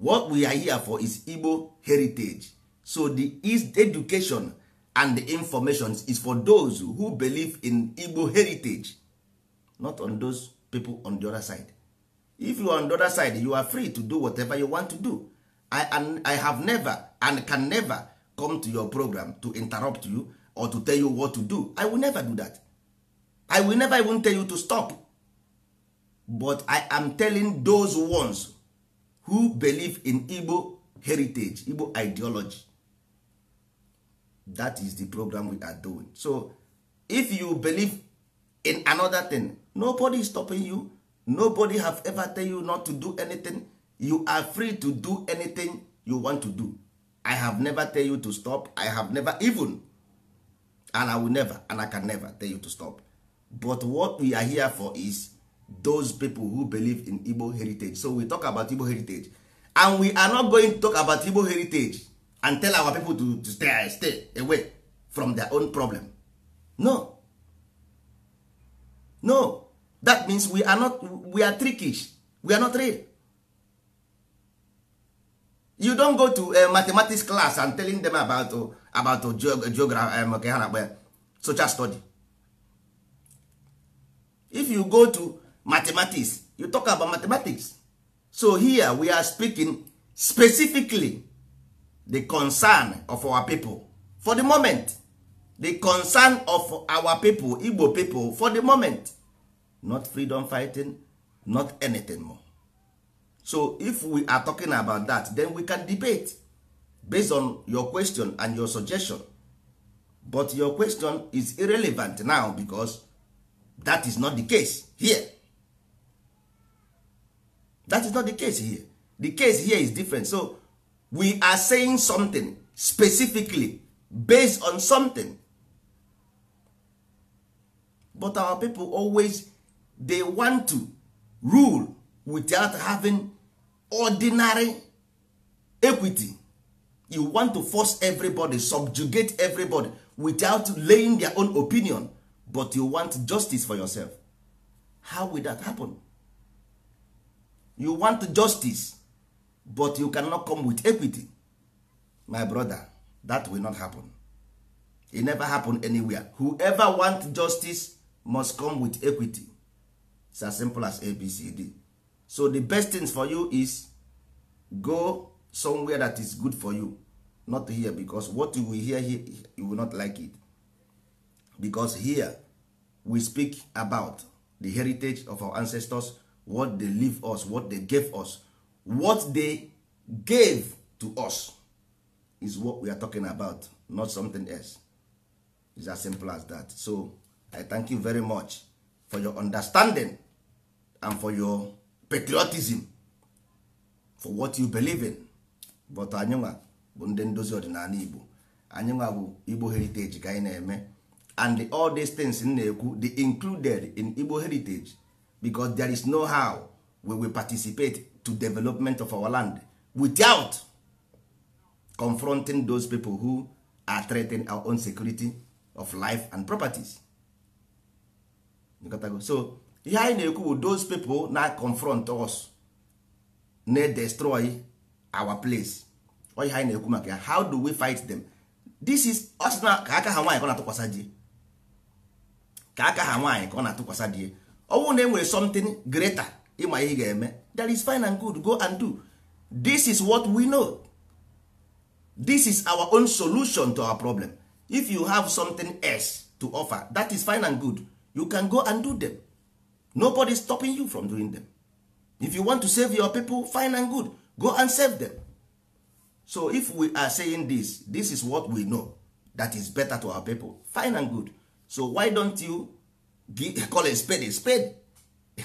what we are here for is Igbo heritage so the East education and the information is for those who believe in Igbo heritage not on those people on the other side if you are on the other side you are free to do whatever you want to do I, and I have never and can never come to your program to interrupt you or to tell you what to do I will never do that I will never even tell you to stop but I am telling those ones who believe in Igbo heritage Igbo ideology that is the program we are doing so if you believe in another thing nobody is stopping you nobody have ever tell you not to do anything you are free to do anything you want to do i have never tell you to stop i have never even and i will never and i can never tell you to stop but what we are here for is those people who believe in igbo heritage so we talk about igbo heritage and we are not going to talk about igbo heritage and tell our people to, to stay, stay away from their own problem no no that means we are not we are trickish we are not real you don't go to a eh, mathematics class and telling them about to oh, about uh, oh, eh, geography eh, um, okay, ha social study if you go to mathematics you talk about mathematics so here we are speaking specifically the concern of our people for the moment the concern of our people igbo people for the moment not freedom fighting not anything more so if we are talking about that then we can debate based on your question and your suggestion but your question is irrelevant now because that is not the case here that is not the case here the case here is different so we are saying something specifically based on something but our people always they want to rule without having ordinary equity you want to force everybody subjugate everybody without laying their own opinion but you want justice for yourself how will that happen you want justice but you cannot come with equity my brother that will not happen it never happen anywhere whoever want justice must come with equity It's as simple as abcd so the best thing for you is go somewhere that is good for you not here because what you will hear here you will not like it because here we speak about the heritage of our ancestors what they leave us what they gave us what they gave to us is what we are talking about not something else It's as simple as that so i thank you very much for your understanding and for your patriotism for what you believe in but anyịnwa bụ ndị ndozi ọdịnala igbo anyịnwa bụ igbo heritage ka anyị na-eme and the, all these things m na-ekwu they included in igbo heritage because there is no how we will participate to development of our land without confronting those people who are threatening our own security of life and properties so ihe anyị na-ekwu bụ those people na confront us na destroy our place oyi ihe anyị na-ekwu maka ya how do we fight them this is ọsịna ka aka ha nwaanyị ka ọ na-atụkwasa di ka aka ha nwaanyị ka ọ na-atụkwasa di ọ bụrụ na e something greater ịma ihe ga-eme that is fine and good go and do this is what we know this is our own solution to our problem if you have something else to offer that is fine and good you can go and do them nobody is stopping you from doing them if you want to save your people fine and good go and save them so if we are saying this this is what we know that is better to our people fine and good so why don't you give, call a spade a spade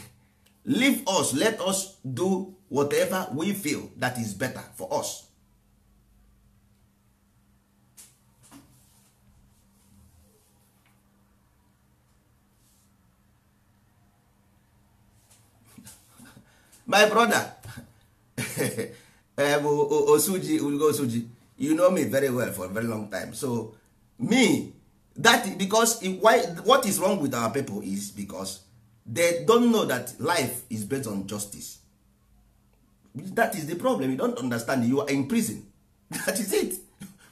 leave us let us do whatever we feel that is better for us my brother eh, bụ osuji ugo osuji you know me very well for a very long time so me that because why, what is wrong with our people is because they don't know that life is based on justice that is the problem you don't understand you are in prison that is it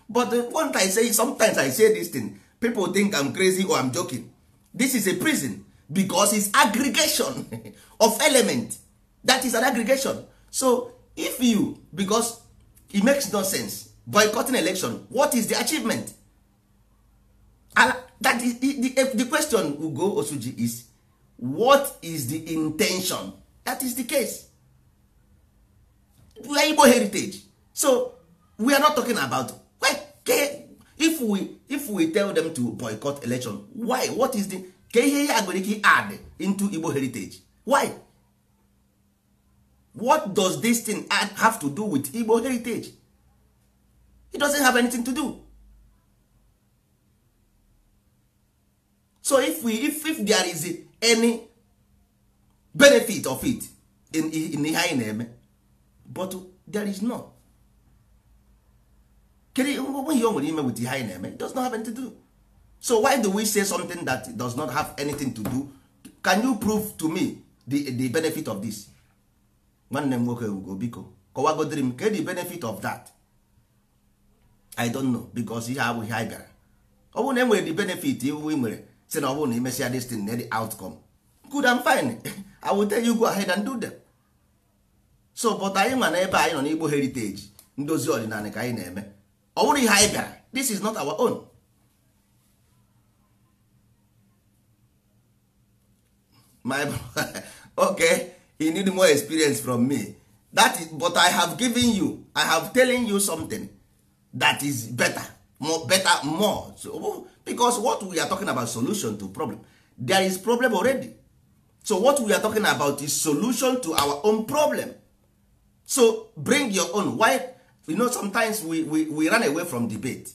but one time say sometimes i say this thing people think i'm crazy or i'm joking this is a prison because it's aggregation of element that is an aggregation so if you because e makes no sense boycotting election what is the achievement and that is, the, eh, the question ugo osuji is what is the intention that is the case we are igbo heritage so we are not talking about if we if we tell them to boycott election why what is the ka ihe ya ike add into igbo heritage why what does this thing have to do with igbo heritage it doesn't have anything to do so if we if, if there is any benefit of it in in ihe anyị na-eme but there is no kedu ihe o nwere ime with ihe anyị na-eme it does not have anything to do so why do we say something that does not have anything to do can you prove to me the, the benefit of this nwanne m nwoke ewugo biko kọwagodiri m kedụ benefit of that i don't know because ihe abụghị anyị bịara ọ bụrụ na e nwere benefit iwu i nwere si na ọ bụrụ na imesịa destin na the outcome good and fine i will tell you go ahead and do them so but anyị nwa na ebe anyị nọ n'igbo heritage ndozi ọdịnala ka anyị na-eme ọ bụrụ ihe anyị bịara this is not our own my okay he need more experience from me that is, but i have given you i have telling you something that is better more better more so, oh, because what we are talking about solution to problem there is problem already so what we are talking about is solution to our own problem so bring your own why you know sometimes we, we, we run away from debate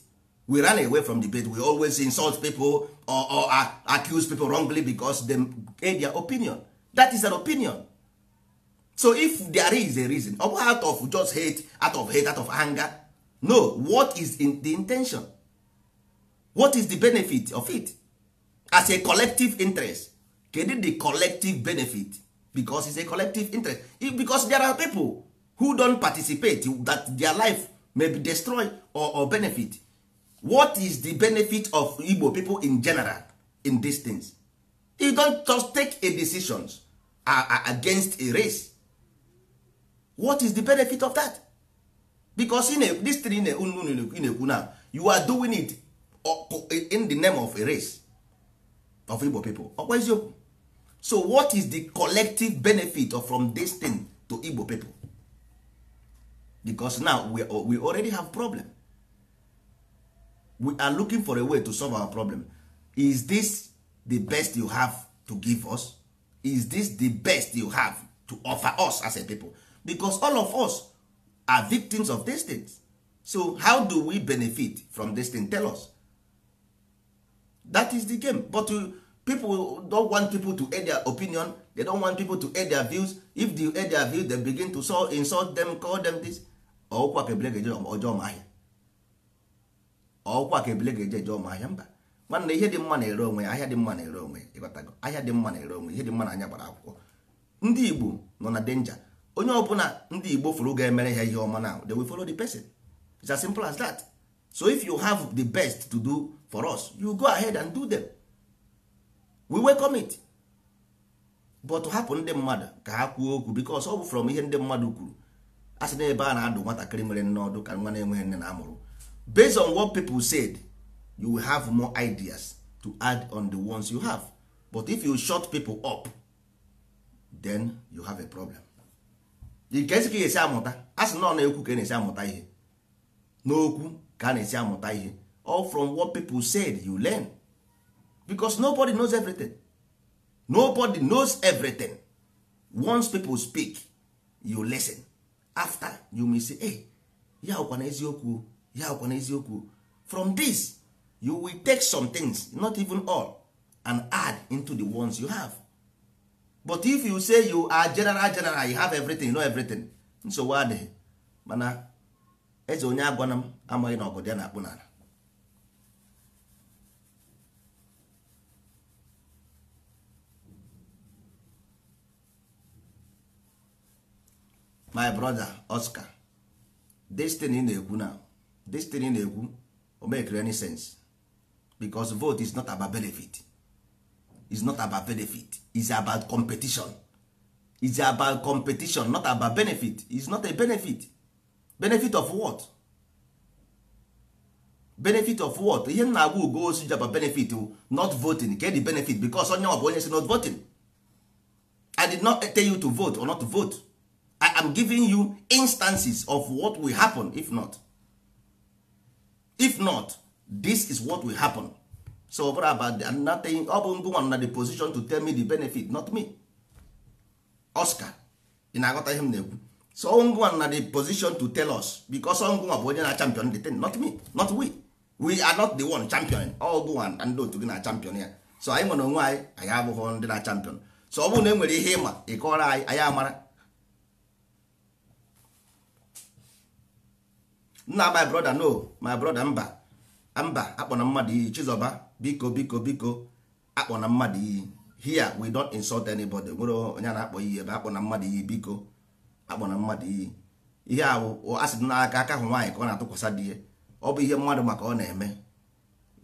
we run away from debate we always insult people or, or uh, accuse people wrongly because them gave their opinion that is an opinion so if there is a reason ọ out of just hate out of hate out of anger no what is in the intention what is the benefit of it as a collective interest kedu the collective benefit because it's a collective interest because there are people who don participate that their life may be destroyed or, or benefit what is the benefit of Igbo people in general in these things you don just take a decisions uh, uh, against a race what is the benefit of that because this thing ị na-ekwu na you are doing it oh, in the name of a race of Igbo people ọkwa oh, eziokwu so what is the collective benefit of from this thing to Igbo people because now we, we already have problem we are looking for a way to solve our problem is this the best you have to give us is this the best you have to offer us as a people because all of us are victims of these things so how do we benefit from this thing tell us that is the game but uh, people don want people to air their opinion they don want people to air their views if they air their views they begin to insult them call them this ọkwa ka ebile ga-eje ọjọọ ma ahịa ọkwa ka ebile ga-eje ọjọọ ma mba nwanne ihe dị mma na-ere onwe ahịa dị mma na-ere onwe ịghọtago ahịa dị mma na-ere onwe ihe dị mma na anya gbara akwụkwọ ndị Igbo nọ na denja onye bụla ndị igbo furu ga-emere ha ihe ọma now they will follow the person it's as simple as that so if you have the best to do for us you go ahead and do them we welcome it but hapụ ndị mmadụ ka ha kwuo okwu because ọ bụ from ihe ndị mmadụ kwuru a sị n'ebe a na-adụ nwatakịrị nwere nne ọdụ ka nwa na-enweghị nne na amụrụ based on what people said you will have more ideas to add on the ones you have but if you shut people up then you have a problem nke esi ka esi amụta a sị nọ na-ekwu ka na-esi amụta ihe n'okwu ka a na-esi amụta ihe all from what people said you learn because nobody knows everything nobody knows everything once people speak you listen after you may say hey, ya ọkwa na eziokwu ya ọkwa na eziokwu from this you will take some things not even all and add into the ones you have but if you say you are general general you have everything you know everything nsogbu adịghị mana eze onye agwana m amaghị na ọgụ ya na-akpụ n'ala my brother Oscar destiny na-ekwu na destiny na-ekwu o make any sense because vote is not about benefit is not about benefit is about competition is about competition not about benefit is not a benefit benefit of what benefit of what ihe nna agwa ugo osu ji about benefit not voting get the benefit because onye ọ bụ onye si not voting i did not tell you to vote or not to vote i am giving you instances of what will happen if not if not this is what will happen so ọ bụrụ about the nothing ọ bụ ngụ nwa na the position to tell me the benefit not me Oscar ị na-aghọta ihe m na-ekwu so ngụnwa na the position to tell us because ngụnwa bụ onye na champion the thing not me not we we are not the one champion ọgụnwa na ndị otu gị na champion ya so anyị nwere onwe anyị anyị abụghị ndị na champion so ọ bụrụ na e nwere ihe ịma ịkọrọ anyị anyị amara nna my brother no my brother mba mba akpọna mmadụ iyi Chizoba biko biko biko akpọ na mmadụ iyi here we don't insult anybody nwere onye na-akpọ iyi ebe akpọ na mmadụ iyi biko akpọ na mmadụ iyi ihe a bụ asị n'aka aka ahụ nwaanyị ka ọ na-atụkwasị di ya ọ bụ ihe mmadụ maka ọ na-eme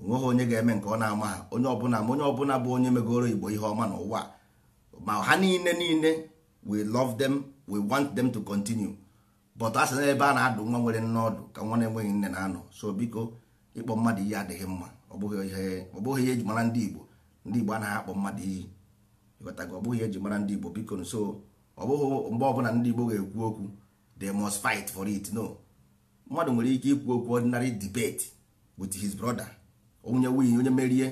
ha onye ga-eme nke ọ na-ama ha onye ọbụla ma onye ọbụla bụ onye megoro igbo ihe ọma n'ụwa ma ha niile niile we love them we want them to continue but asị na ebe a na-adụ nwa nwere nne ọdụ ka nwa na-enweghị nne na-anọ so biko ịkpọ mmadụ ihe adịghị mma ọ bụghị ihe ọ bụghị ihe eji mara ndị Igbo ndị Igbo anaghị akpọ mmadụ iyi ịghọtago ọ bụghị ihe eji mara ndị Igbo biko nso ọ bụghị mgbe ọbụla ndị Igbo ga-ekwu okwu they must fight for it no mmadụ nwere ike ikwu okwu ordinary debate with his brother onye winye onye merie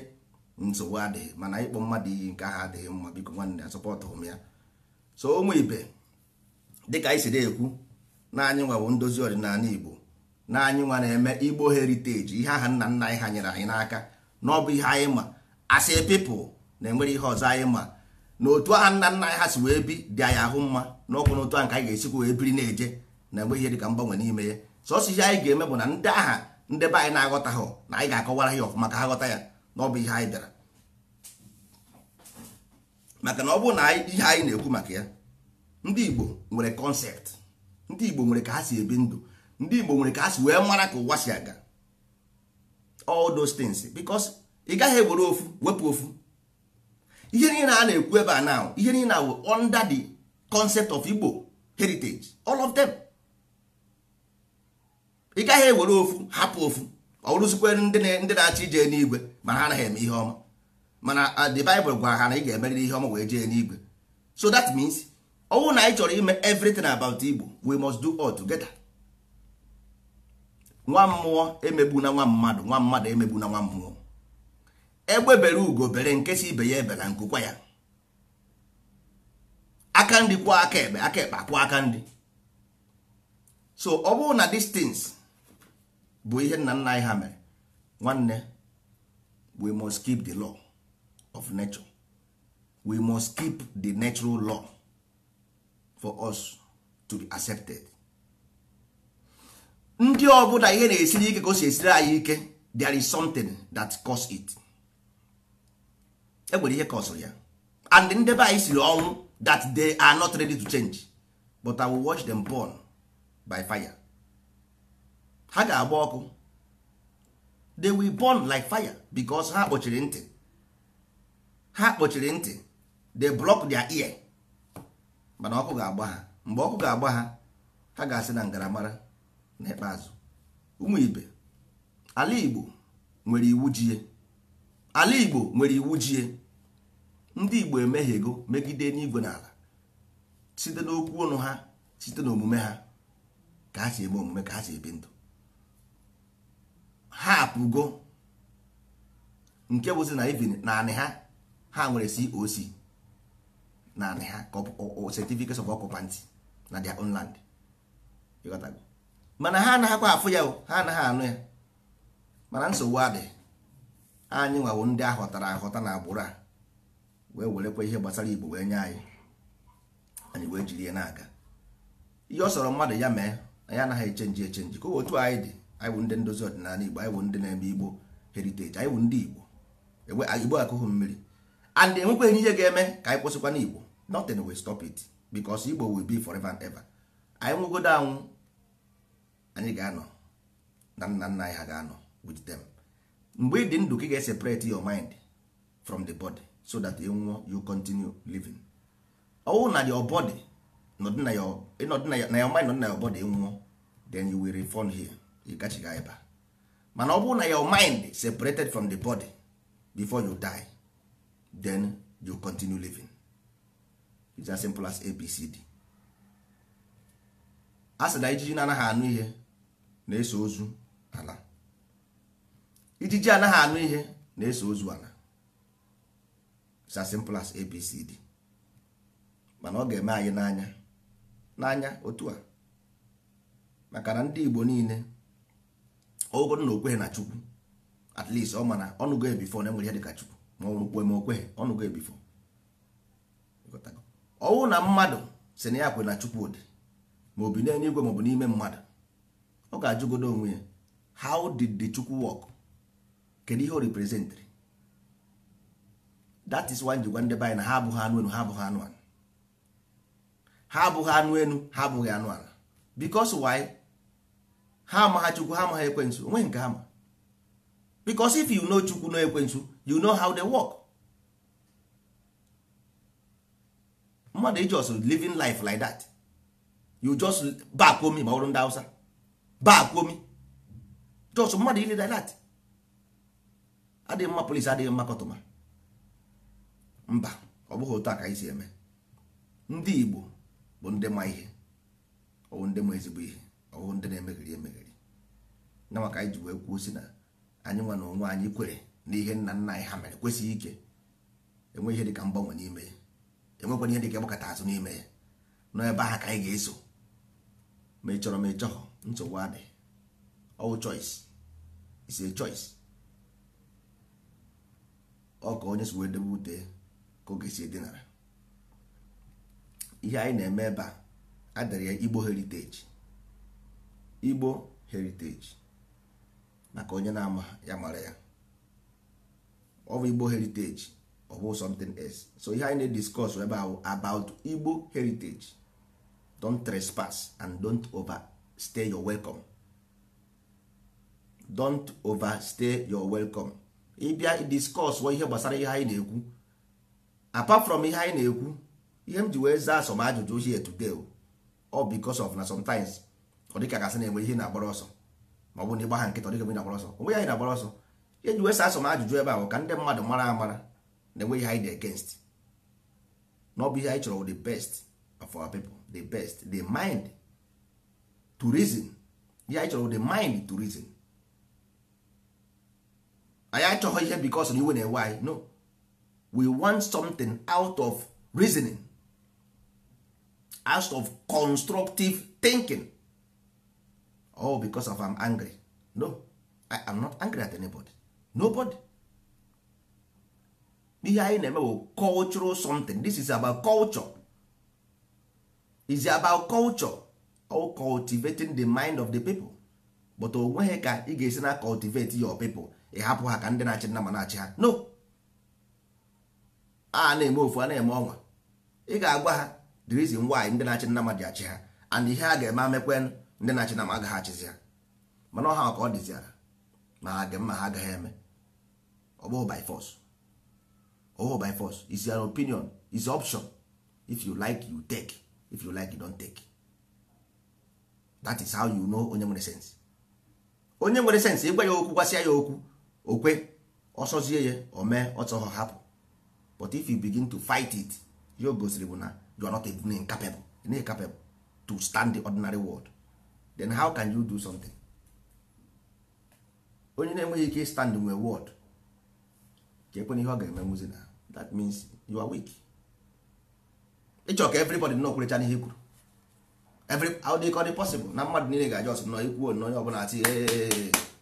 nsogbu adịghị mana ịkpọ mmadụ iyi nke aha adịghị mma biko nwanne ya m ya so ụmụ ibe dịka anyị si na-ekwu naanị anyị nwa bụ ndozi ọdịnala Igbo na anyị nwa na-eme igbo heriteji ihe aha nna nna anyị ha nyere anyị n'aka na ihe anyị ma asị pipụl na-enwere ihe ọzọ anyị ma na otu aha nna nna anyị ha si wee bi dị anyị ahụ mma na ọkwụ n'otu ahụ ka anyị ga-esikwa wee biri na-eje na enwe ihe dịka mgbanwe n'ime ya sọsọ ihe anyị ga-eme bụ na ndị aha ndị be anyị na-aghọta ha na anyị ga-akọwara ya ọfụma ka ha ghọta ya na ọbụ ihe anyị bịara maka na ọ bụrụ na ihe anyị na-ekwu maka ya ndị igbo nwere kọnsept ndị igbo nwere ka ha si ebi ndụ ndị Igbo nwere ka a si wee mara ka ụwa si aga all those things because ị gaghị ewere ofu wepụ ofu ihe niile a na-ekwu ebe a na ihe niile awụ under the concept of Igbo heritage all of them ị gaghị ewere ofu hapụ ofu ọ rụzikwere ndị na-achọ ije n'igwe ma ha anaghị eme ihe ọma mana uh, the Bible gwara ha na ị ga-emerịrị ihe ọma wee jee n'igwe so that means ọ na anyị chọrọ ime everything about Igbo we must do all together. nwa mmụọ emegbu na nwa mmadụ nwa mmadụ emegbu na nwa mmụọ egbe bere ugo bere nke si ibe ya ebela nkụkwa ya aka ndị kwụọ aka ekpe aka ekpe akwụọ aka ndị so ọ bụrụ na distance bụ ihe nna nna anyị ha mere nwanne we must keep the law of nature we must keep the natural law for us to be accepted ndị ọbụla ihe na-esiri ike ka o si esiri anyị ike there is something that cause it enwere ihe kọsụrụ ya and ndebe anyị siri ọnwụ that they are not ready to change but I will watch them burn by fire ha ga-agba ọkụ they will burn like fire because ha kpochiri ntị ha kpochiri ntị they block their ear mana ọkụ ga-agba ha mgbe ọkụ ga-agba ha ha ga-asị na ngaramara n'ikpeazụ ụmụ ibe ala igbo nwere iwu jie ala igbo nwere iwu jie ndị igbo emehiego megide n'igwe n'ala site n'okwu ọnụ ha site n'omume ha ka ha si eme omume ka ha si ebi ndụ ha apụgo nke bụzi na ivin naanị ha ha nwere coc naanị ha certificate of occupancy na their own land mana ha anaghịkwa afụ ya ha anaghị anụ ya mana nsogbu adị anyị nwawo ndị ahọtara ahọta na agbụrụ a wee werekwa ihe gbasara igbo wee nye anyị anyị wee jiri ya na-aga ihe ọ sọrọ mmadụ ya mee anyị anaghị echenji echenji ka otu anyị dị anyị bụ ndị ndozi ọdịnala igbo anyị bụ ndị na-eme igbo heriteji anyị bụ ndị igbo igbo akụghụ mmiri and enwekweghị ihe ga-eme ka anyị kwụsịkwa n'igbo nothing will stop it because igbo will be forever and ever anyị nwụgodo anwụ anyị ga-anọ na nna nna anyị ha ga-anọ with them mgbe ị dị ndụ ka ị ga your mind from the body so that ị e nwụọ you continue living ọwụ na your body nọdụ na your mind nọdị na your body e nwụọ then you will return here ị gachiga ebe mana ọ bụrụ na your mind separated from the body before you die then you continue living it's as simple as abcd a na ijiji na anaghị anụ ihe na-eso ozu ala ijiji anaghị anụ ihe na-eso ozu ala it's as simple as abcd mana ọ ga-eme anyị n'anya n'anya otu a maka na ndị igbo niile ogodo na okweghị na chukwu at least ọ mana ọnụgo ebifo na enwere e ihe dịka chukwu ma ọ kwe ma okweghị ọnụgo ebifo ọnwụ na mmadụ si na ya kwe na chukwu dị ma obi n'elu igwe maọbụ n'ime mmadụ ọ ga-ajụgodo onwe ya how did the chukwu work kedu ihe o representịrị that is why njikwa ndị anyị na ha abụghị anụ enu ha abụghị anụ ala ha abụghị anụ enu ha abụghị anụ ala because why ha ha chukwu ha amaghị ekwensu onwe nke ha ma because if you know chukwu no ekwensu you know how they work mmadụ ijos living life like that you just back home ma ọrụ ndị Hausa baakwa omi jos mmadụ ile dilat adịghị mma polisi adịghị mma kọtụma mba ọ bụghị otu a ka anyị si eme ndị igbo bụ ndị ma ihe ọwụ ndị ma ezigbo ihe ọwụ ndị na-emegheri emegheri na maka anyị ji wee kwuo si na anyị nwa na onwe anyị kwere na ihe nna nna anyị ha mere kwesịghị ike enwe ihe dịka mgbanwe n'ime ya e enwekwana ihe dịka ịgbakọta azụ n'ime ya nọ ebe ahụ ka anyị ga-eso ma ị chọrọ ma ị nsogbu adị ọwụ choice is a choice ọ ka onye si wee debe ute ka oge si edinara ihe anyị na-eme ebe a adịrị ya Igbo heritage Igbo heritage maka onye na-ama ya mara ya ọ bụ Igbo heritage ọ bụ something else so ihe anyị na-ediscuss ebe ahụ about Igbo heritage don't trespass and don't over stay your welcome don't overstay your welcome ịbịa discuss ihe gbasara ihe anyị na-ekwu apart from ihe anyị na-ekwu ihe m ji wee zaa asọm ajụjụ ochie today ọ because of na sometimes ọ dịka gasị na-enwe ihe na-agbara ọsọ ma ọ bụ na ịgba ha nkịta ọ dịka ihe na-agbara ọsọ onwe ya anyị na-agbara ọsọ ihe ji wee saa asọm ajụjụ ebe ahụ ka ndị mmadụ mara amara na-enwe ihe anyị dị against na ọ bụ ihe anyị chọrọ the best of our people the best the mind to reason ya anyị chọrọ the mind to reason anyị achọghị ihe because na iwe na-ewe anyị no we want something out of reasoning out of constructive thinking oh because of I'm angry no I am not angry at anybody nobody ihe anyị na-eme bụ cultural something this is about culture is about culture o cultivating the mind of the people but o nweghị ka ị ga-esi na cultivate your people ị hapụ ha ka ndị na-achị nna ma na-achị ha no a na-eme ofu a na-eme ọnwa ị ga-agwa ha the reason why ndị na-achị nna ma dị achị ha and ihe a ga-eme amekwe ndị na-achị na ma agaghị achịzi ha mana ọha ka ọ dịziara ma ha dị mma ha agaghị eme ọ bụghị by force ọ bụghị by force is your opinion is option if you like you take if you like you don't take that is how you know onye nwere sense onye nwere sense ịgwa ya okwu gwasịa ya okwu okwe ọsọzie ya o mee ọtọghọ hapụ but if you begin to fight it ya go gosiri bụ na you are not even incapable capable to stand the ordinary world then how can you do something onye na-enweghị ike stand nwe word ka ekwe ihe ọ ga-eme muzi na that means you are weak ịchọ ka everybody nọ kwurecha n'ihe e kwuru every how they call it possible na mmadụ niile ga-aja ọsọ nọ ikwu onye ọbụla ati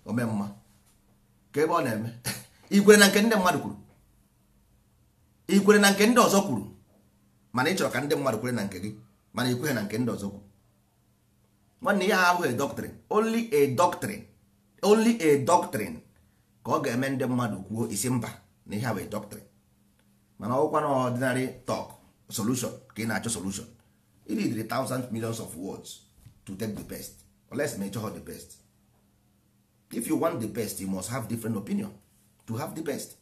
ome oh, mma ka ebe ọ na-eme ikwere na nke ndị mmadụ kwuru ikwere na nke ndị ọzọ kwuru mana ị chọrọ ka ndị mmadụ kwere na nke gị mana ikwere na nke ndị ọzọ kwuru nwanne ihe ahụ a doctrine only a doctrine only a doctrine ka ọ ga-eme ndị mmadụ kwuo isi mba na ihe a bụ doctrine mana ọkwa na ọdịnarị talk solution ka ị na-achọ solution you need the thousand millions of words to take the best unless ma ịchọghọ the best if you want the best you must have different opinion to have the best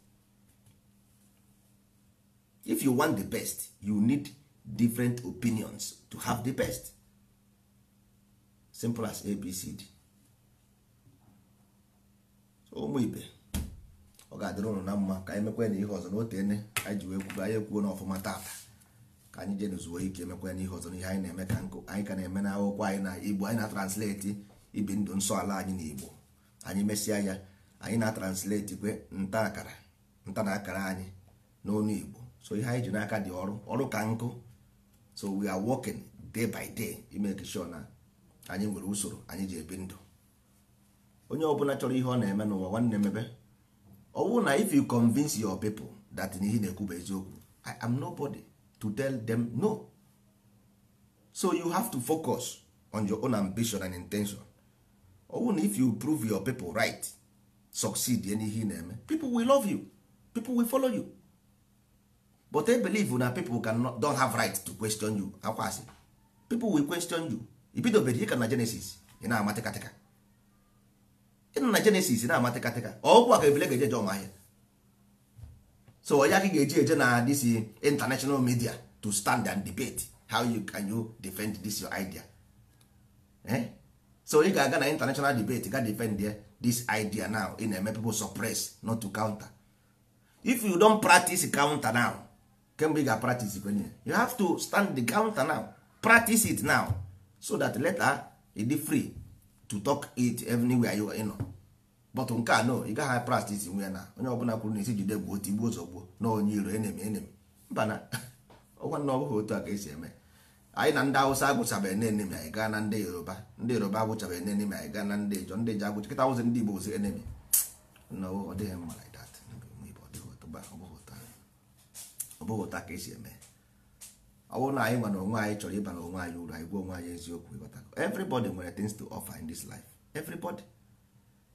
if you want the best you need different opinions to have the best simple as abcd ụmụ ibe ọ ga-adịrị ụnụ na mma ka anyị mekwe na ihe ọzọ na otene anyị ji wee kwuo anyị ekwuo n'ọfụma tata anyị jee n'uzuo ike emekwa n'ihe ọzọ n'ihe anyị na-eme ka nkụ anyị ka na-eme na akwụkwọ anyị na igbo anyị na translate ibi ndụ nsọ ala anyị na igbo anyị mesịa ya anyị na-atransleti kwe nta akara nta na akara anyị n'onu igbo so ihe anyị ji n'aka dị ọrụ ọrụ ka nkụ so we are working day by day imeke sure na anyị nwere usoro anyị ji ebi ndụ onye ọbụla chọrọ ihe ọ na-eme n'ụwa nwanne mebe ọ bụrụ na if you convince your people that ihe na-ekwu bụ eziokwu I am nobody to tell them no so you have to focus on your own ambition and intention owu na if you prove your people right succeed in ihe na-eme people will love you people will follow you but I believe na people cannot, don't have right to question you akwasị people will question you ibidobere ịka na Genesis ị na-amatịkatịka ịnọ na Genesis na-amatịkatịka ọgwụ aka ebile ga-eje je ọmahịa so onye aka ga-eji eje na this international media to stand and debate how you can you defend this your idea eh? so ị ga-aga na international debate ga defend this idea now ị na-eme people suppress not to counter if you don practice counter now kemgbe ị ga-practice kwenye you have to stand the counter now practice it now so that later ị dị free to talk it anywhere you are, you know. but nke a no ị gaghị practice nwe ya na onye ọbụla kwuru na isi jide gbuo tigbuo gbuo na onye iro enemi enemi mba na ọgwa na otu a ka esi eme anyị na ndị awụsa agwụchabeghị na enemi anyị gaa na ndị yoruba ndị yoruba agwụchabeghị na enemi anyị gaa na ndị ijọ ndị ijọ agwụcha kịta ndị igbo ozi enemi ọ mma ọbụghị ka esi eme ọ bụrụ na anyị nwa na onwe anyị chọrọ ịba onwe anyị uru anyị onwe anyị nwere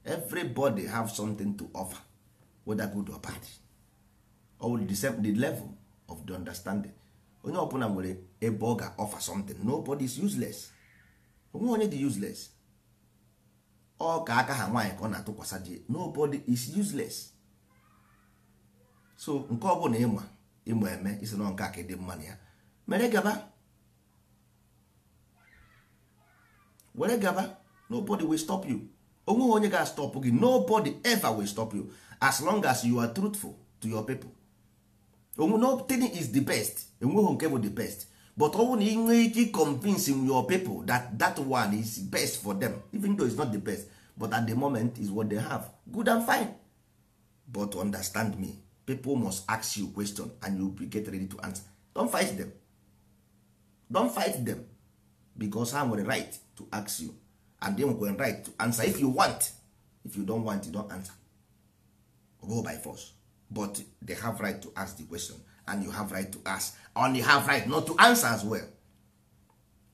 everybody have something to offer whether good or bad or will the level of the understanding onye ọbụla nwere ebe ọ ga-offer something nobody is useless onwe onye dị useless ọ ka aka ha nwaanyị ka ọ na-atụkwasị ji nobody is useless so nke ọ bụla ịma ịma eme isi na nke aka dị mma na ya mere gaba were gaba nobody will stop you onwe onye ga-astọpụ gị nobody ever will stop you as long as you are truthful to your people nothing is the best enweghị nke bụ the best but ọ na ị ike convincing your people that that one is best for them even though is not the best but at the moment is what they have good and fine but understand me people must ask you question and you be get ready to answer don't fight them don't fight them because ha nwere right to ask you and go right to answer if you want if you don't want you don't answer go by force but they have right to ask the question and you have right to ask and you have right not to answer as well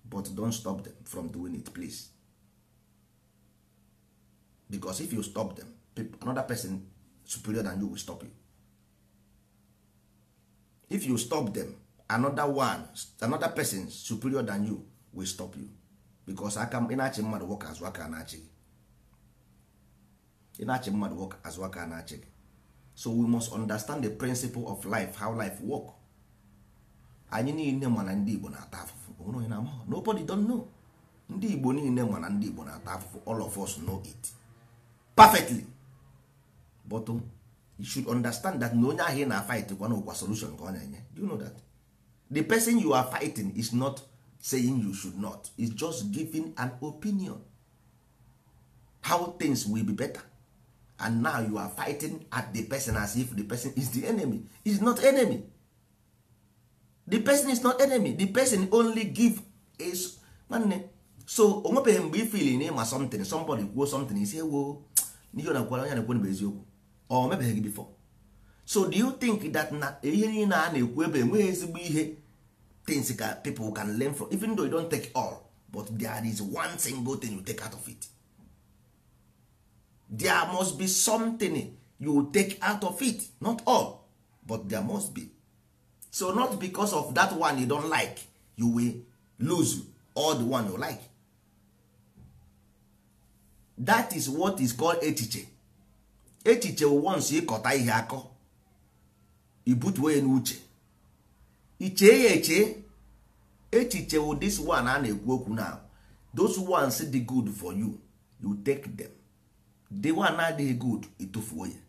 but don't stop them from doing it please because if you stop them another person superior than you will stop you if you stop them another one another person superior than you will stop you bikos aka ị achị mmadụ nwoke azụ aka na-achị gị mmadụ nwoke azụ aka na-achị gị so we must understand the principle of life how life work anyị niile mana ndị Igbo na-ata afụfụ nobody don't know ndị Igbo niile mana ndị Igbo na-ata afụfụ all of us know it perfectly but um, you should understand that na onye ahụ ị na-afight kwana ụkwa solution ka ọ na-enye do you know that the person you are fighting is not saying you should not is just giving an opinion how things will be better and now you are fighting at the person as if the person is the enemy is not enemy the person is not enemy the person only give is nwanne so o nwebeghị mgbe ifili na ịma something somebody kwuo something is ewo n'ihe na onye na-ekwu bụ eziokwu ọ mebeghị gị before so do you think that na ihe niile a na-ekwu ebe enweghị ezigbo ihe things that people can learn from even though you don't take all but there is one single thing you take out of it there must be something you take out of it not all but there must be so not because of that one you don't like you will lose all the one you like that is what is called echiche echiche once ịkọta ihe akọ ibutuo ya n'uche ichee ya eche echiche wụ this one a na-ekwu okwu na those ones dị good for you you take them the one adịghị good ịtụfuo ya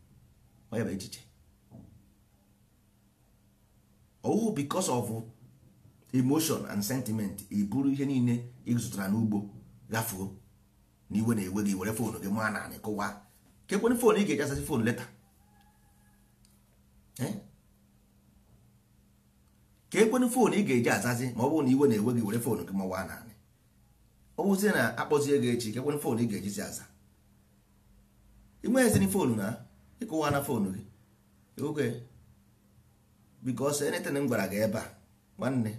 onye bụ echiche ohu because of emotion and sentiment iburu ihe niile ịzụtara n'ugbo gafuo na iwe na-ewe gị were fon gị maa na anị kụwa kekwere foonu ị ga-echasasị fon leta ka ekwenụ foonu ị ga-eji azazi ma ọ bụrụ na iwe na-ewe gị were foonu gị mawa naanị ọ bụzie na akpọzie gị echi ka ekwenụ foonu ị ga-ejizi eji aza inweghịzini foonu na ịkụwa na foonu gị oge bikos anything m gwara gị ebe a nwanne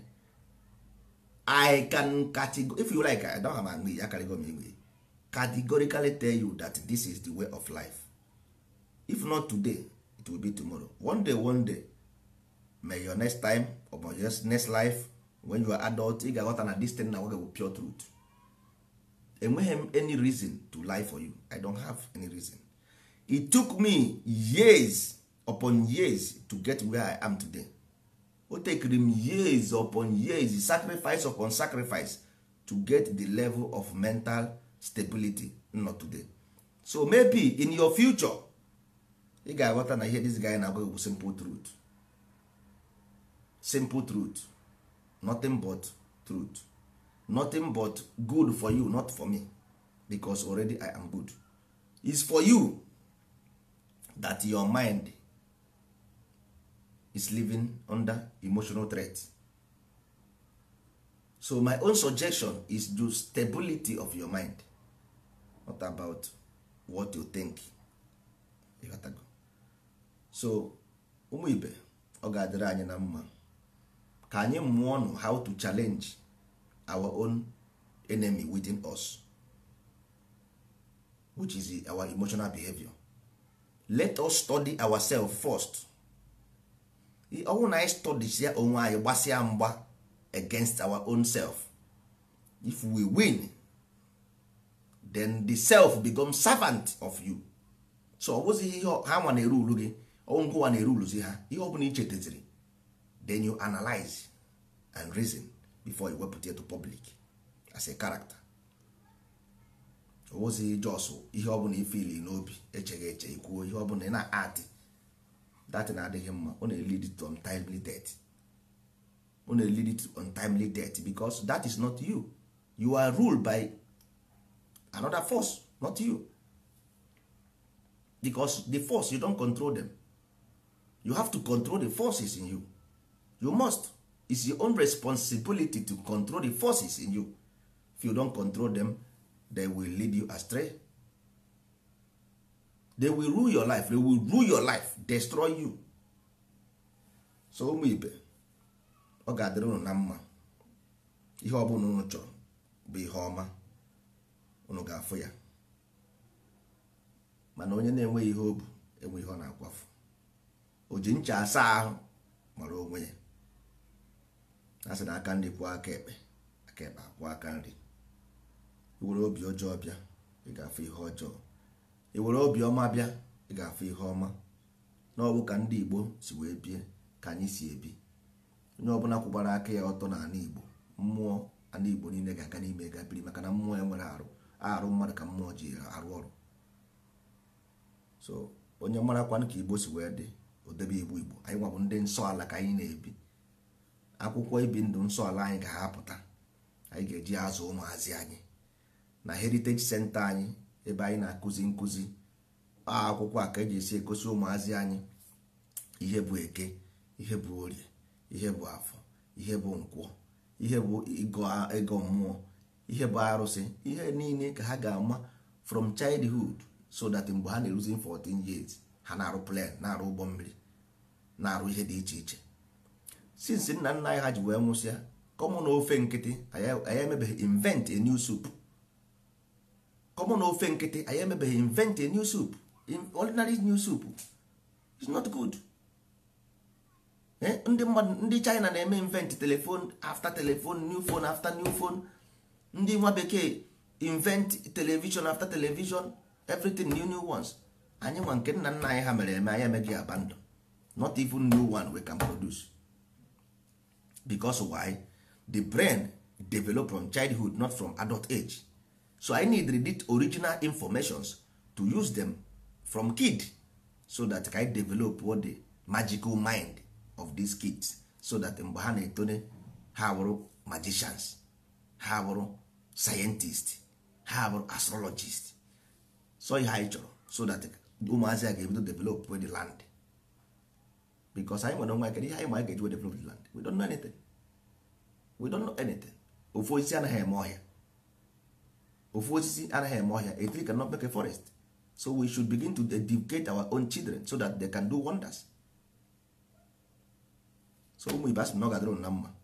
i can categor if you like i don't have ya english akarịgo m english categorically tell you that this is the way of life if not today it will be tomorrow one day one day may your next time or your next life when you are adult ị ga-aghọta na this thing na nwoge bụ pure truth enweghị m any reason to lie for you i don't have any reason it took me years upon years to get where i am today o tekiri m years upon years sacrifice upon sacrifice to get the level of mental stability not today so maybe in your future ị ga-aghọta na ihe this guy na-agwa bụ simple truth simple truth nothing but truth nothing but good for you not for me because already i am good is for you that your mind is living under emotional threat so my own suggestion is do stability of your mind not about what you think so ụmụ ibe ọ ga-adịrị anyị na mma ka anyị mụọ nụ how to challenge our own enemy within us which is our emotional behavior let us study ourselves first ọnwụ na anyị studisia onwe anyị gbasịa mgba against our own self if we win then the self become servant of you so ọ bụzighị ihe ha nwa na-eru ulu gị ọnwụ nke na-eru uluzi ha ihe ọ bụla ichetaziri then you analyze and reason before you wepụta ya to public as a character owozi jos ihe ọbụla ifili n'obi echeghị eche ikwuo ihe ọbụla ị na-atị na adịghị mma ọ na-elid to untimely death ọ na-elid to untimely death because that is not you you are ruled by another force not you because the force you don control them you have to control the forces in you you must It's your own responsibility to control the forces in you if you don't control them they will lead you astray they will rule your life they will rule your life destroy you so ụmụ ibe ọ ga-adịrị unu na mma ihe ọ bụla unu chọrọ bụ ihe ọma unu ga-afụ ya mana onye na-enweghị ihe o bu enwe ihe ọ na-akwafu o ji ncha asa ahụ mara onwe ya a sị na aka nri kwụọ aka ekpe aka ekpe aka nri iwere obi ọjọọ bịa ị ga-afụ ihe ọjọọ iwere obi ọma bịa ị ga-afụ ihe ọma n'ọbụ ka ndị Igbo si wee bie ka anyị si ebi onye ọbụla kwụbara aka ya ọtọ n'ala Igbo mmụọ ana Igbo niile ga-aga n'ime ga biri maka na mmụọ ya nwere arụ arụ mmadụ ka mmụọ ji arụ ọrụ so onye marakwanụ ka Igbo si wee dị odebe Igbo Igbo anyị nwabụ ndị nsọ ala ka anyị na-ebi akwụkwọ ibi ndụ nsọ ala anyị ka ha anyị ga-eji azụ ụmụazị anyị na heritage center anyị ebe anyị na-akụzi nkụzi akwụkwọ a ka e ji esi egosi ụmụazị anyị ihe bụ eke ihe bụ orie ihe bụ afọ ihe bụ nkwọ ihe bụ ego mmụọ ihe bụ arụsị ihe niile ka ha ga-ama from childhood so that mgbe ha na-eruzi 14 years ha na-arụ plan na-arụ ụgbọ mmiri na-arụ ihe dị iche iche since nna nna anyị ha ji wee nwụsịa kọmụ ofe nkịtị anyị emebeghị invent a new soup kọmụ ofe nkịtị anyị emebeghị invent a new soup ordinary new soup is not good ndị mmadụ ndị China na-eme invent telephone after telephone new phone after new phone ndị nwa bekee invent television after television everything new new ones anyị nwa nke nna nna anyị ha mere eme anyị emeghị abandon not even new one we can produce because why the brain develop from childhood not from adult age so i need the original informations to use them from kid so that I develop what the magical mind of these kids so that mgbe ha na-etone ha wụrụ magicians ha wụrụ scientist ha wụrụ astrologist so ihe anyị chọrọ so that ụmụazị a ga-ebido develop the land because anyị nwere nwa kedu ihe anyị ma anyị ga-eji develop land we don't know anything we don't know anything ofu osisi anaghị eme ọhịa ofu osisi anaghị eme ọhịa a ka cannot forest so we should begin to educate our own children so that they can do wonders so ụmụ ibe asị na ọ na mma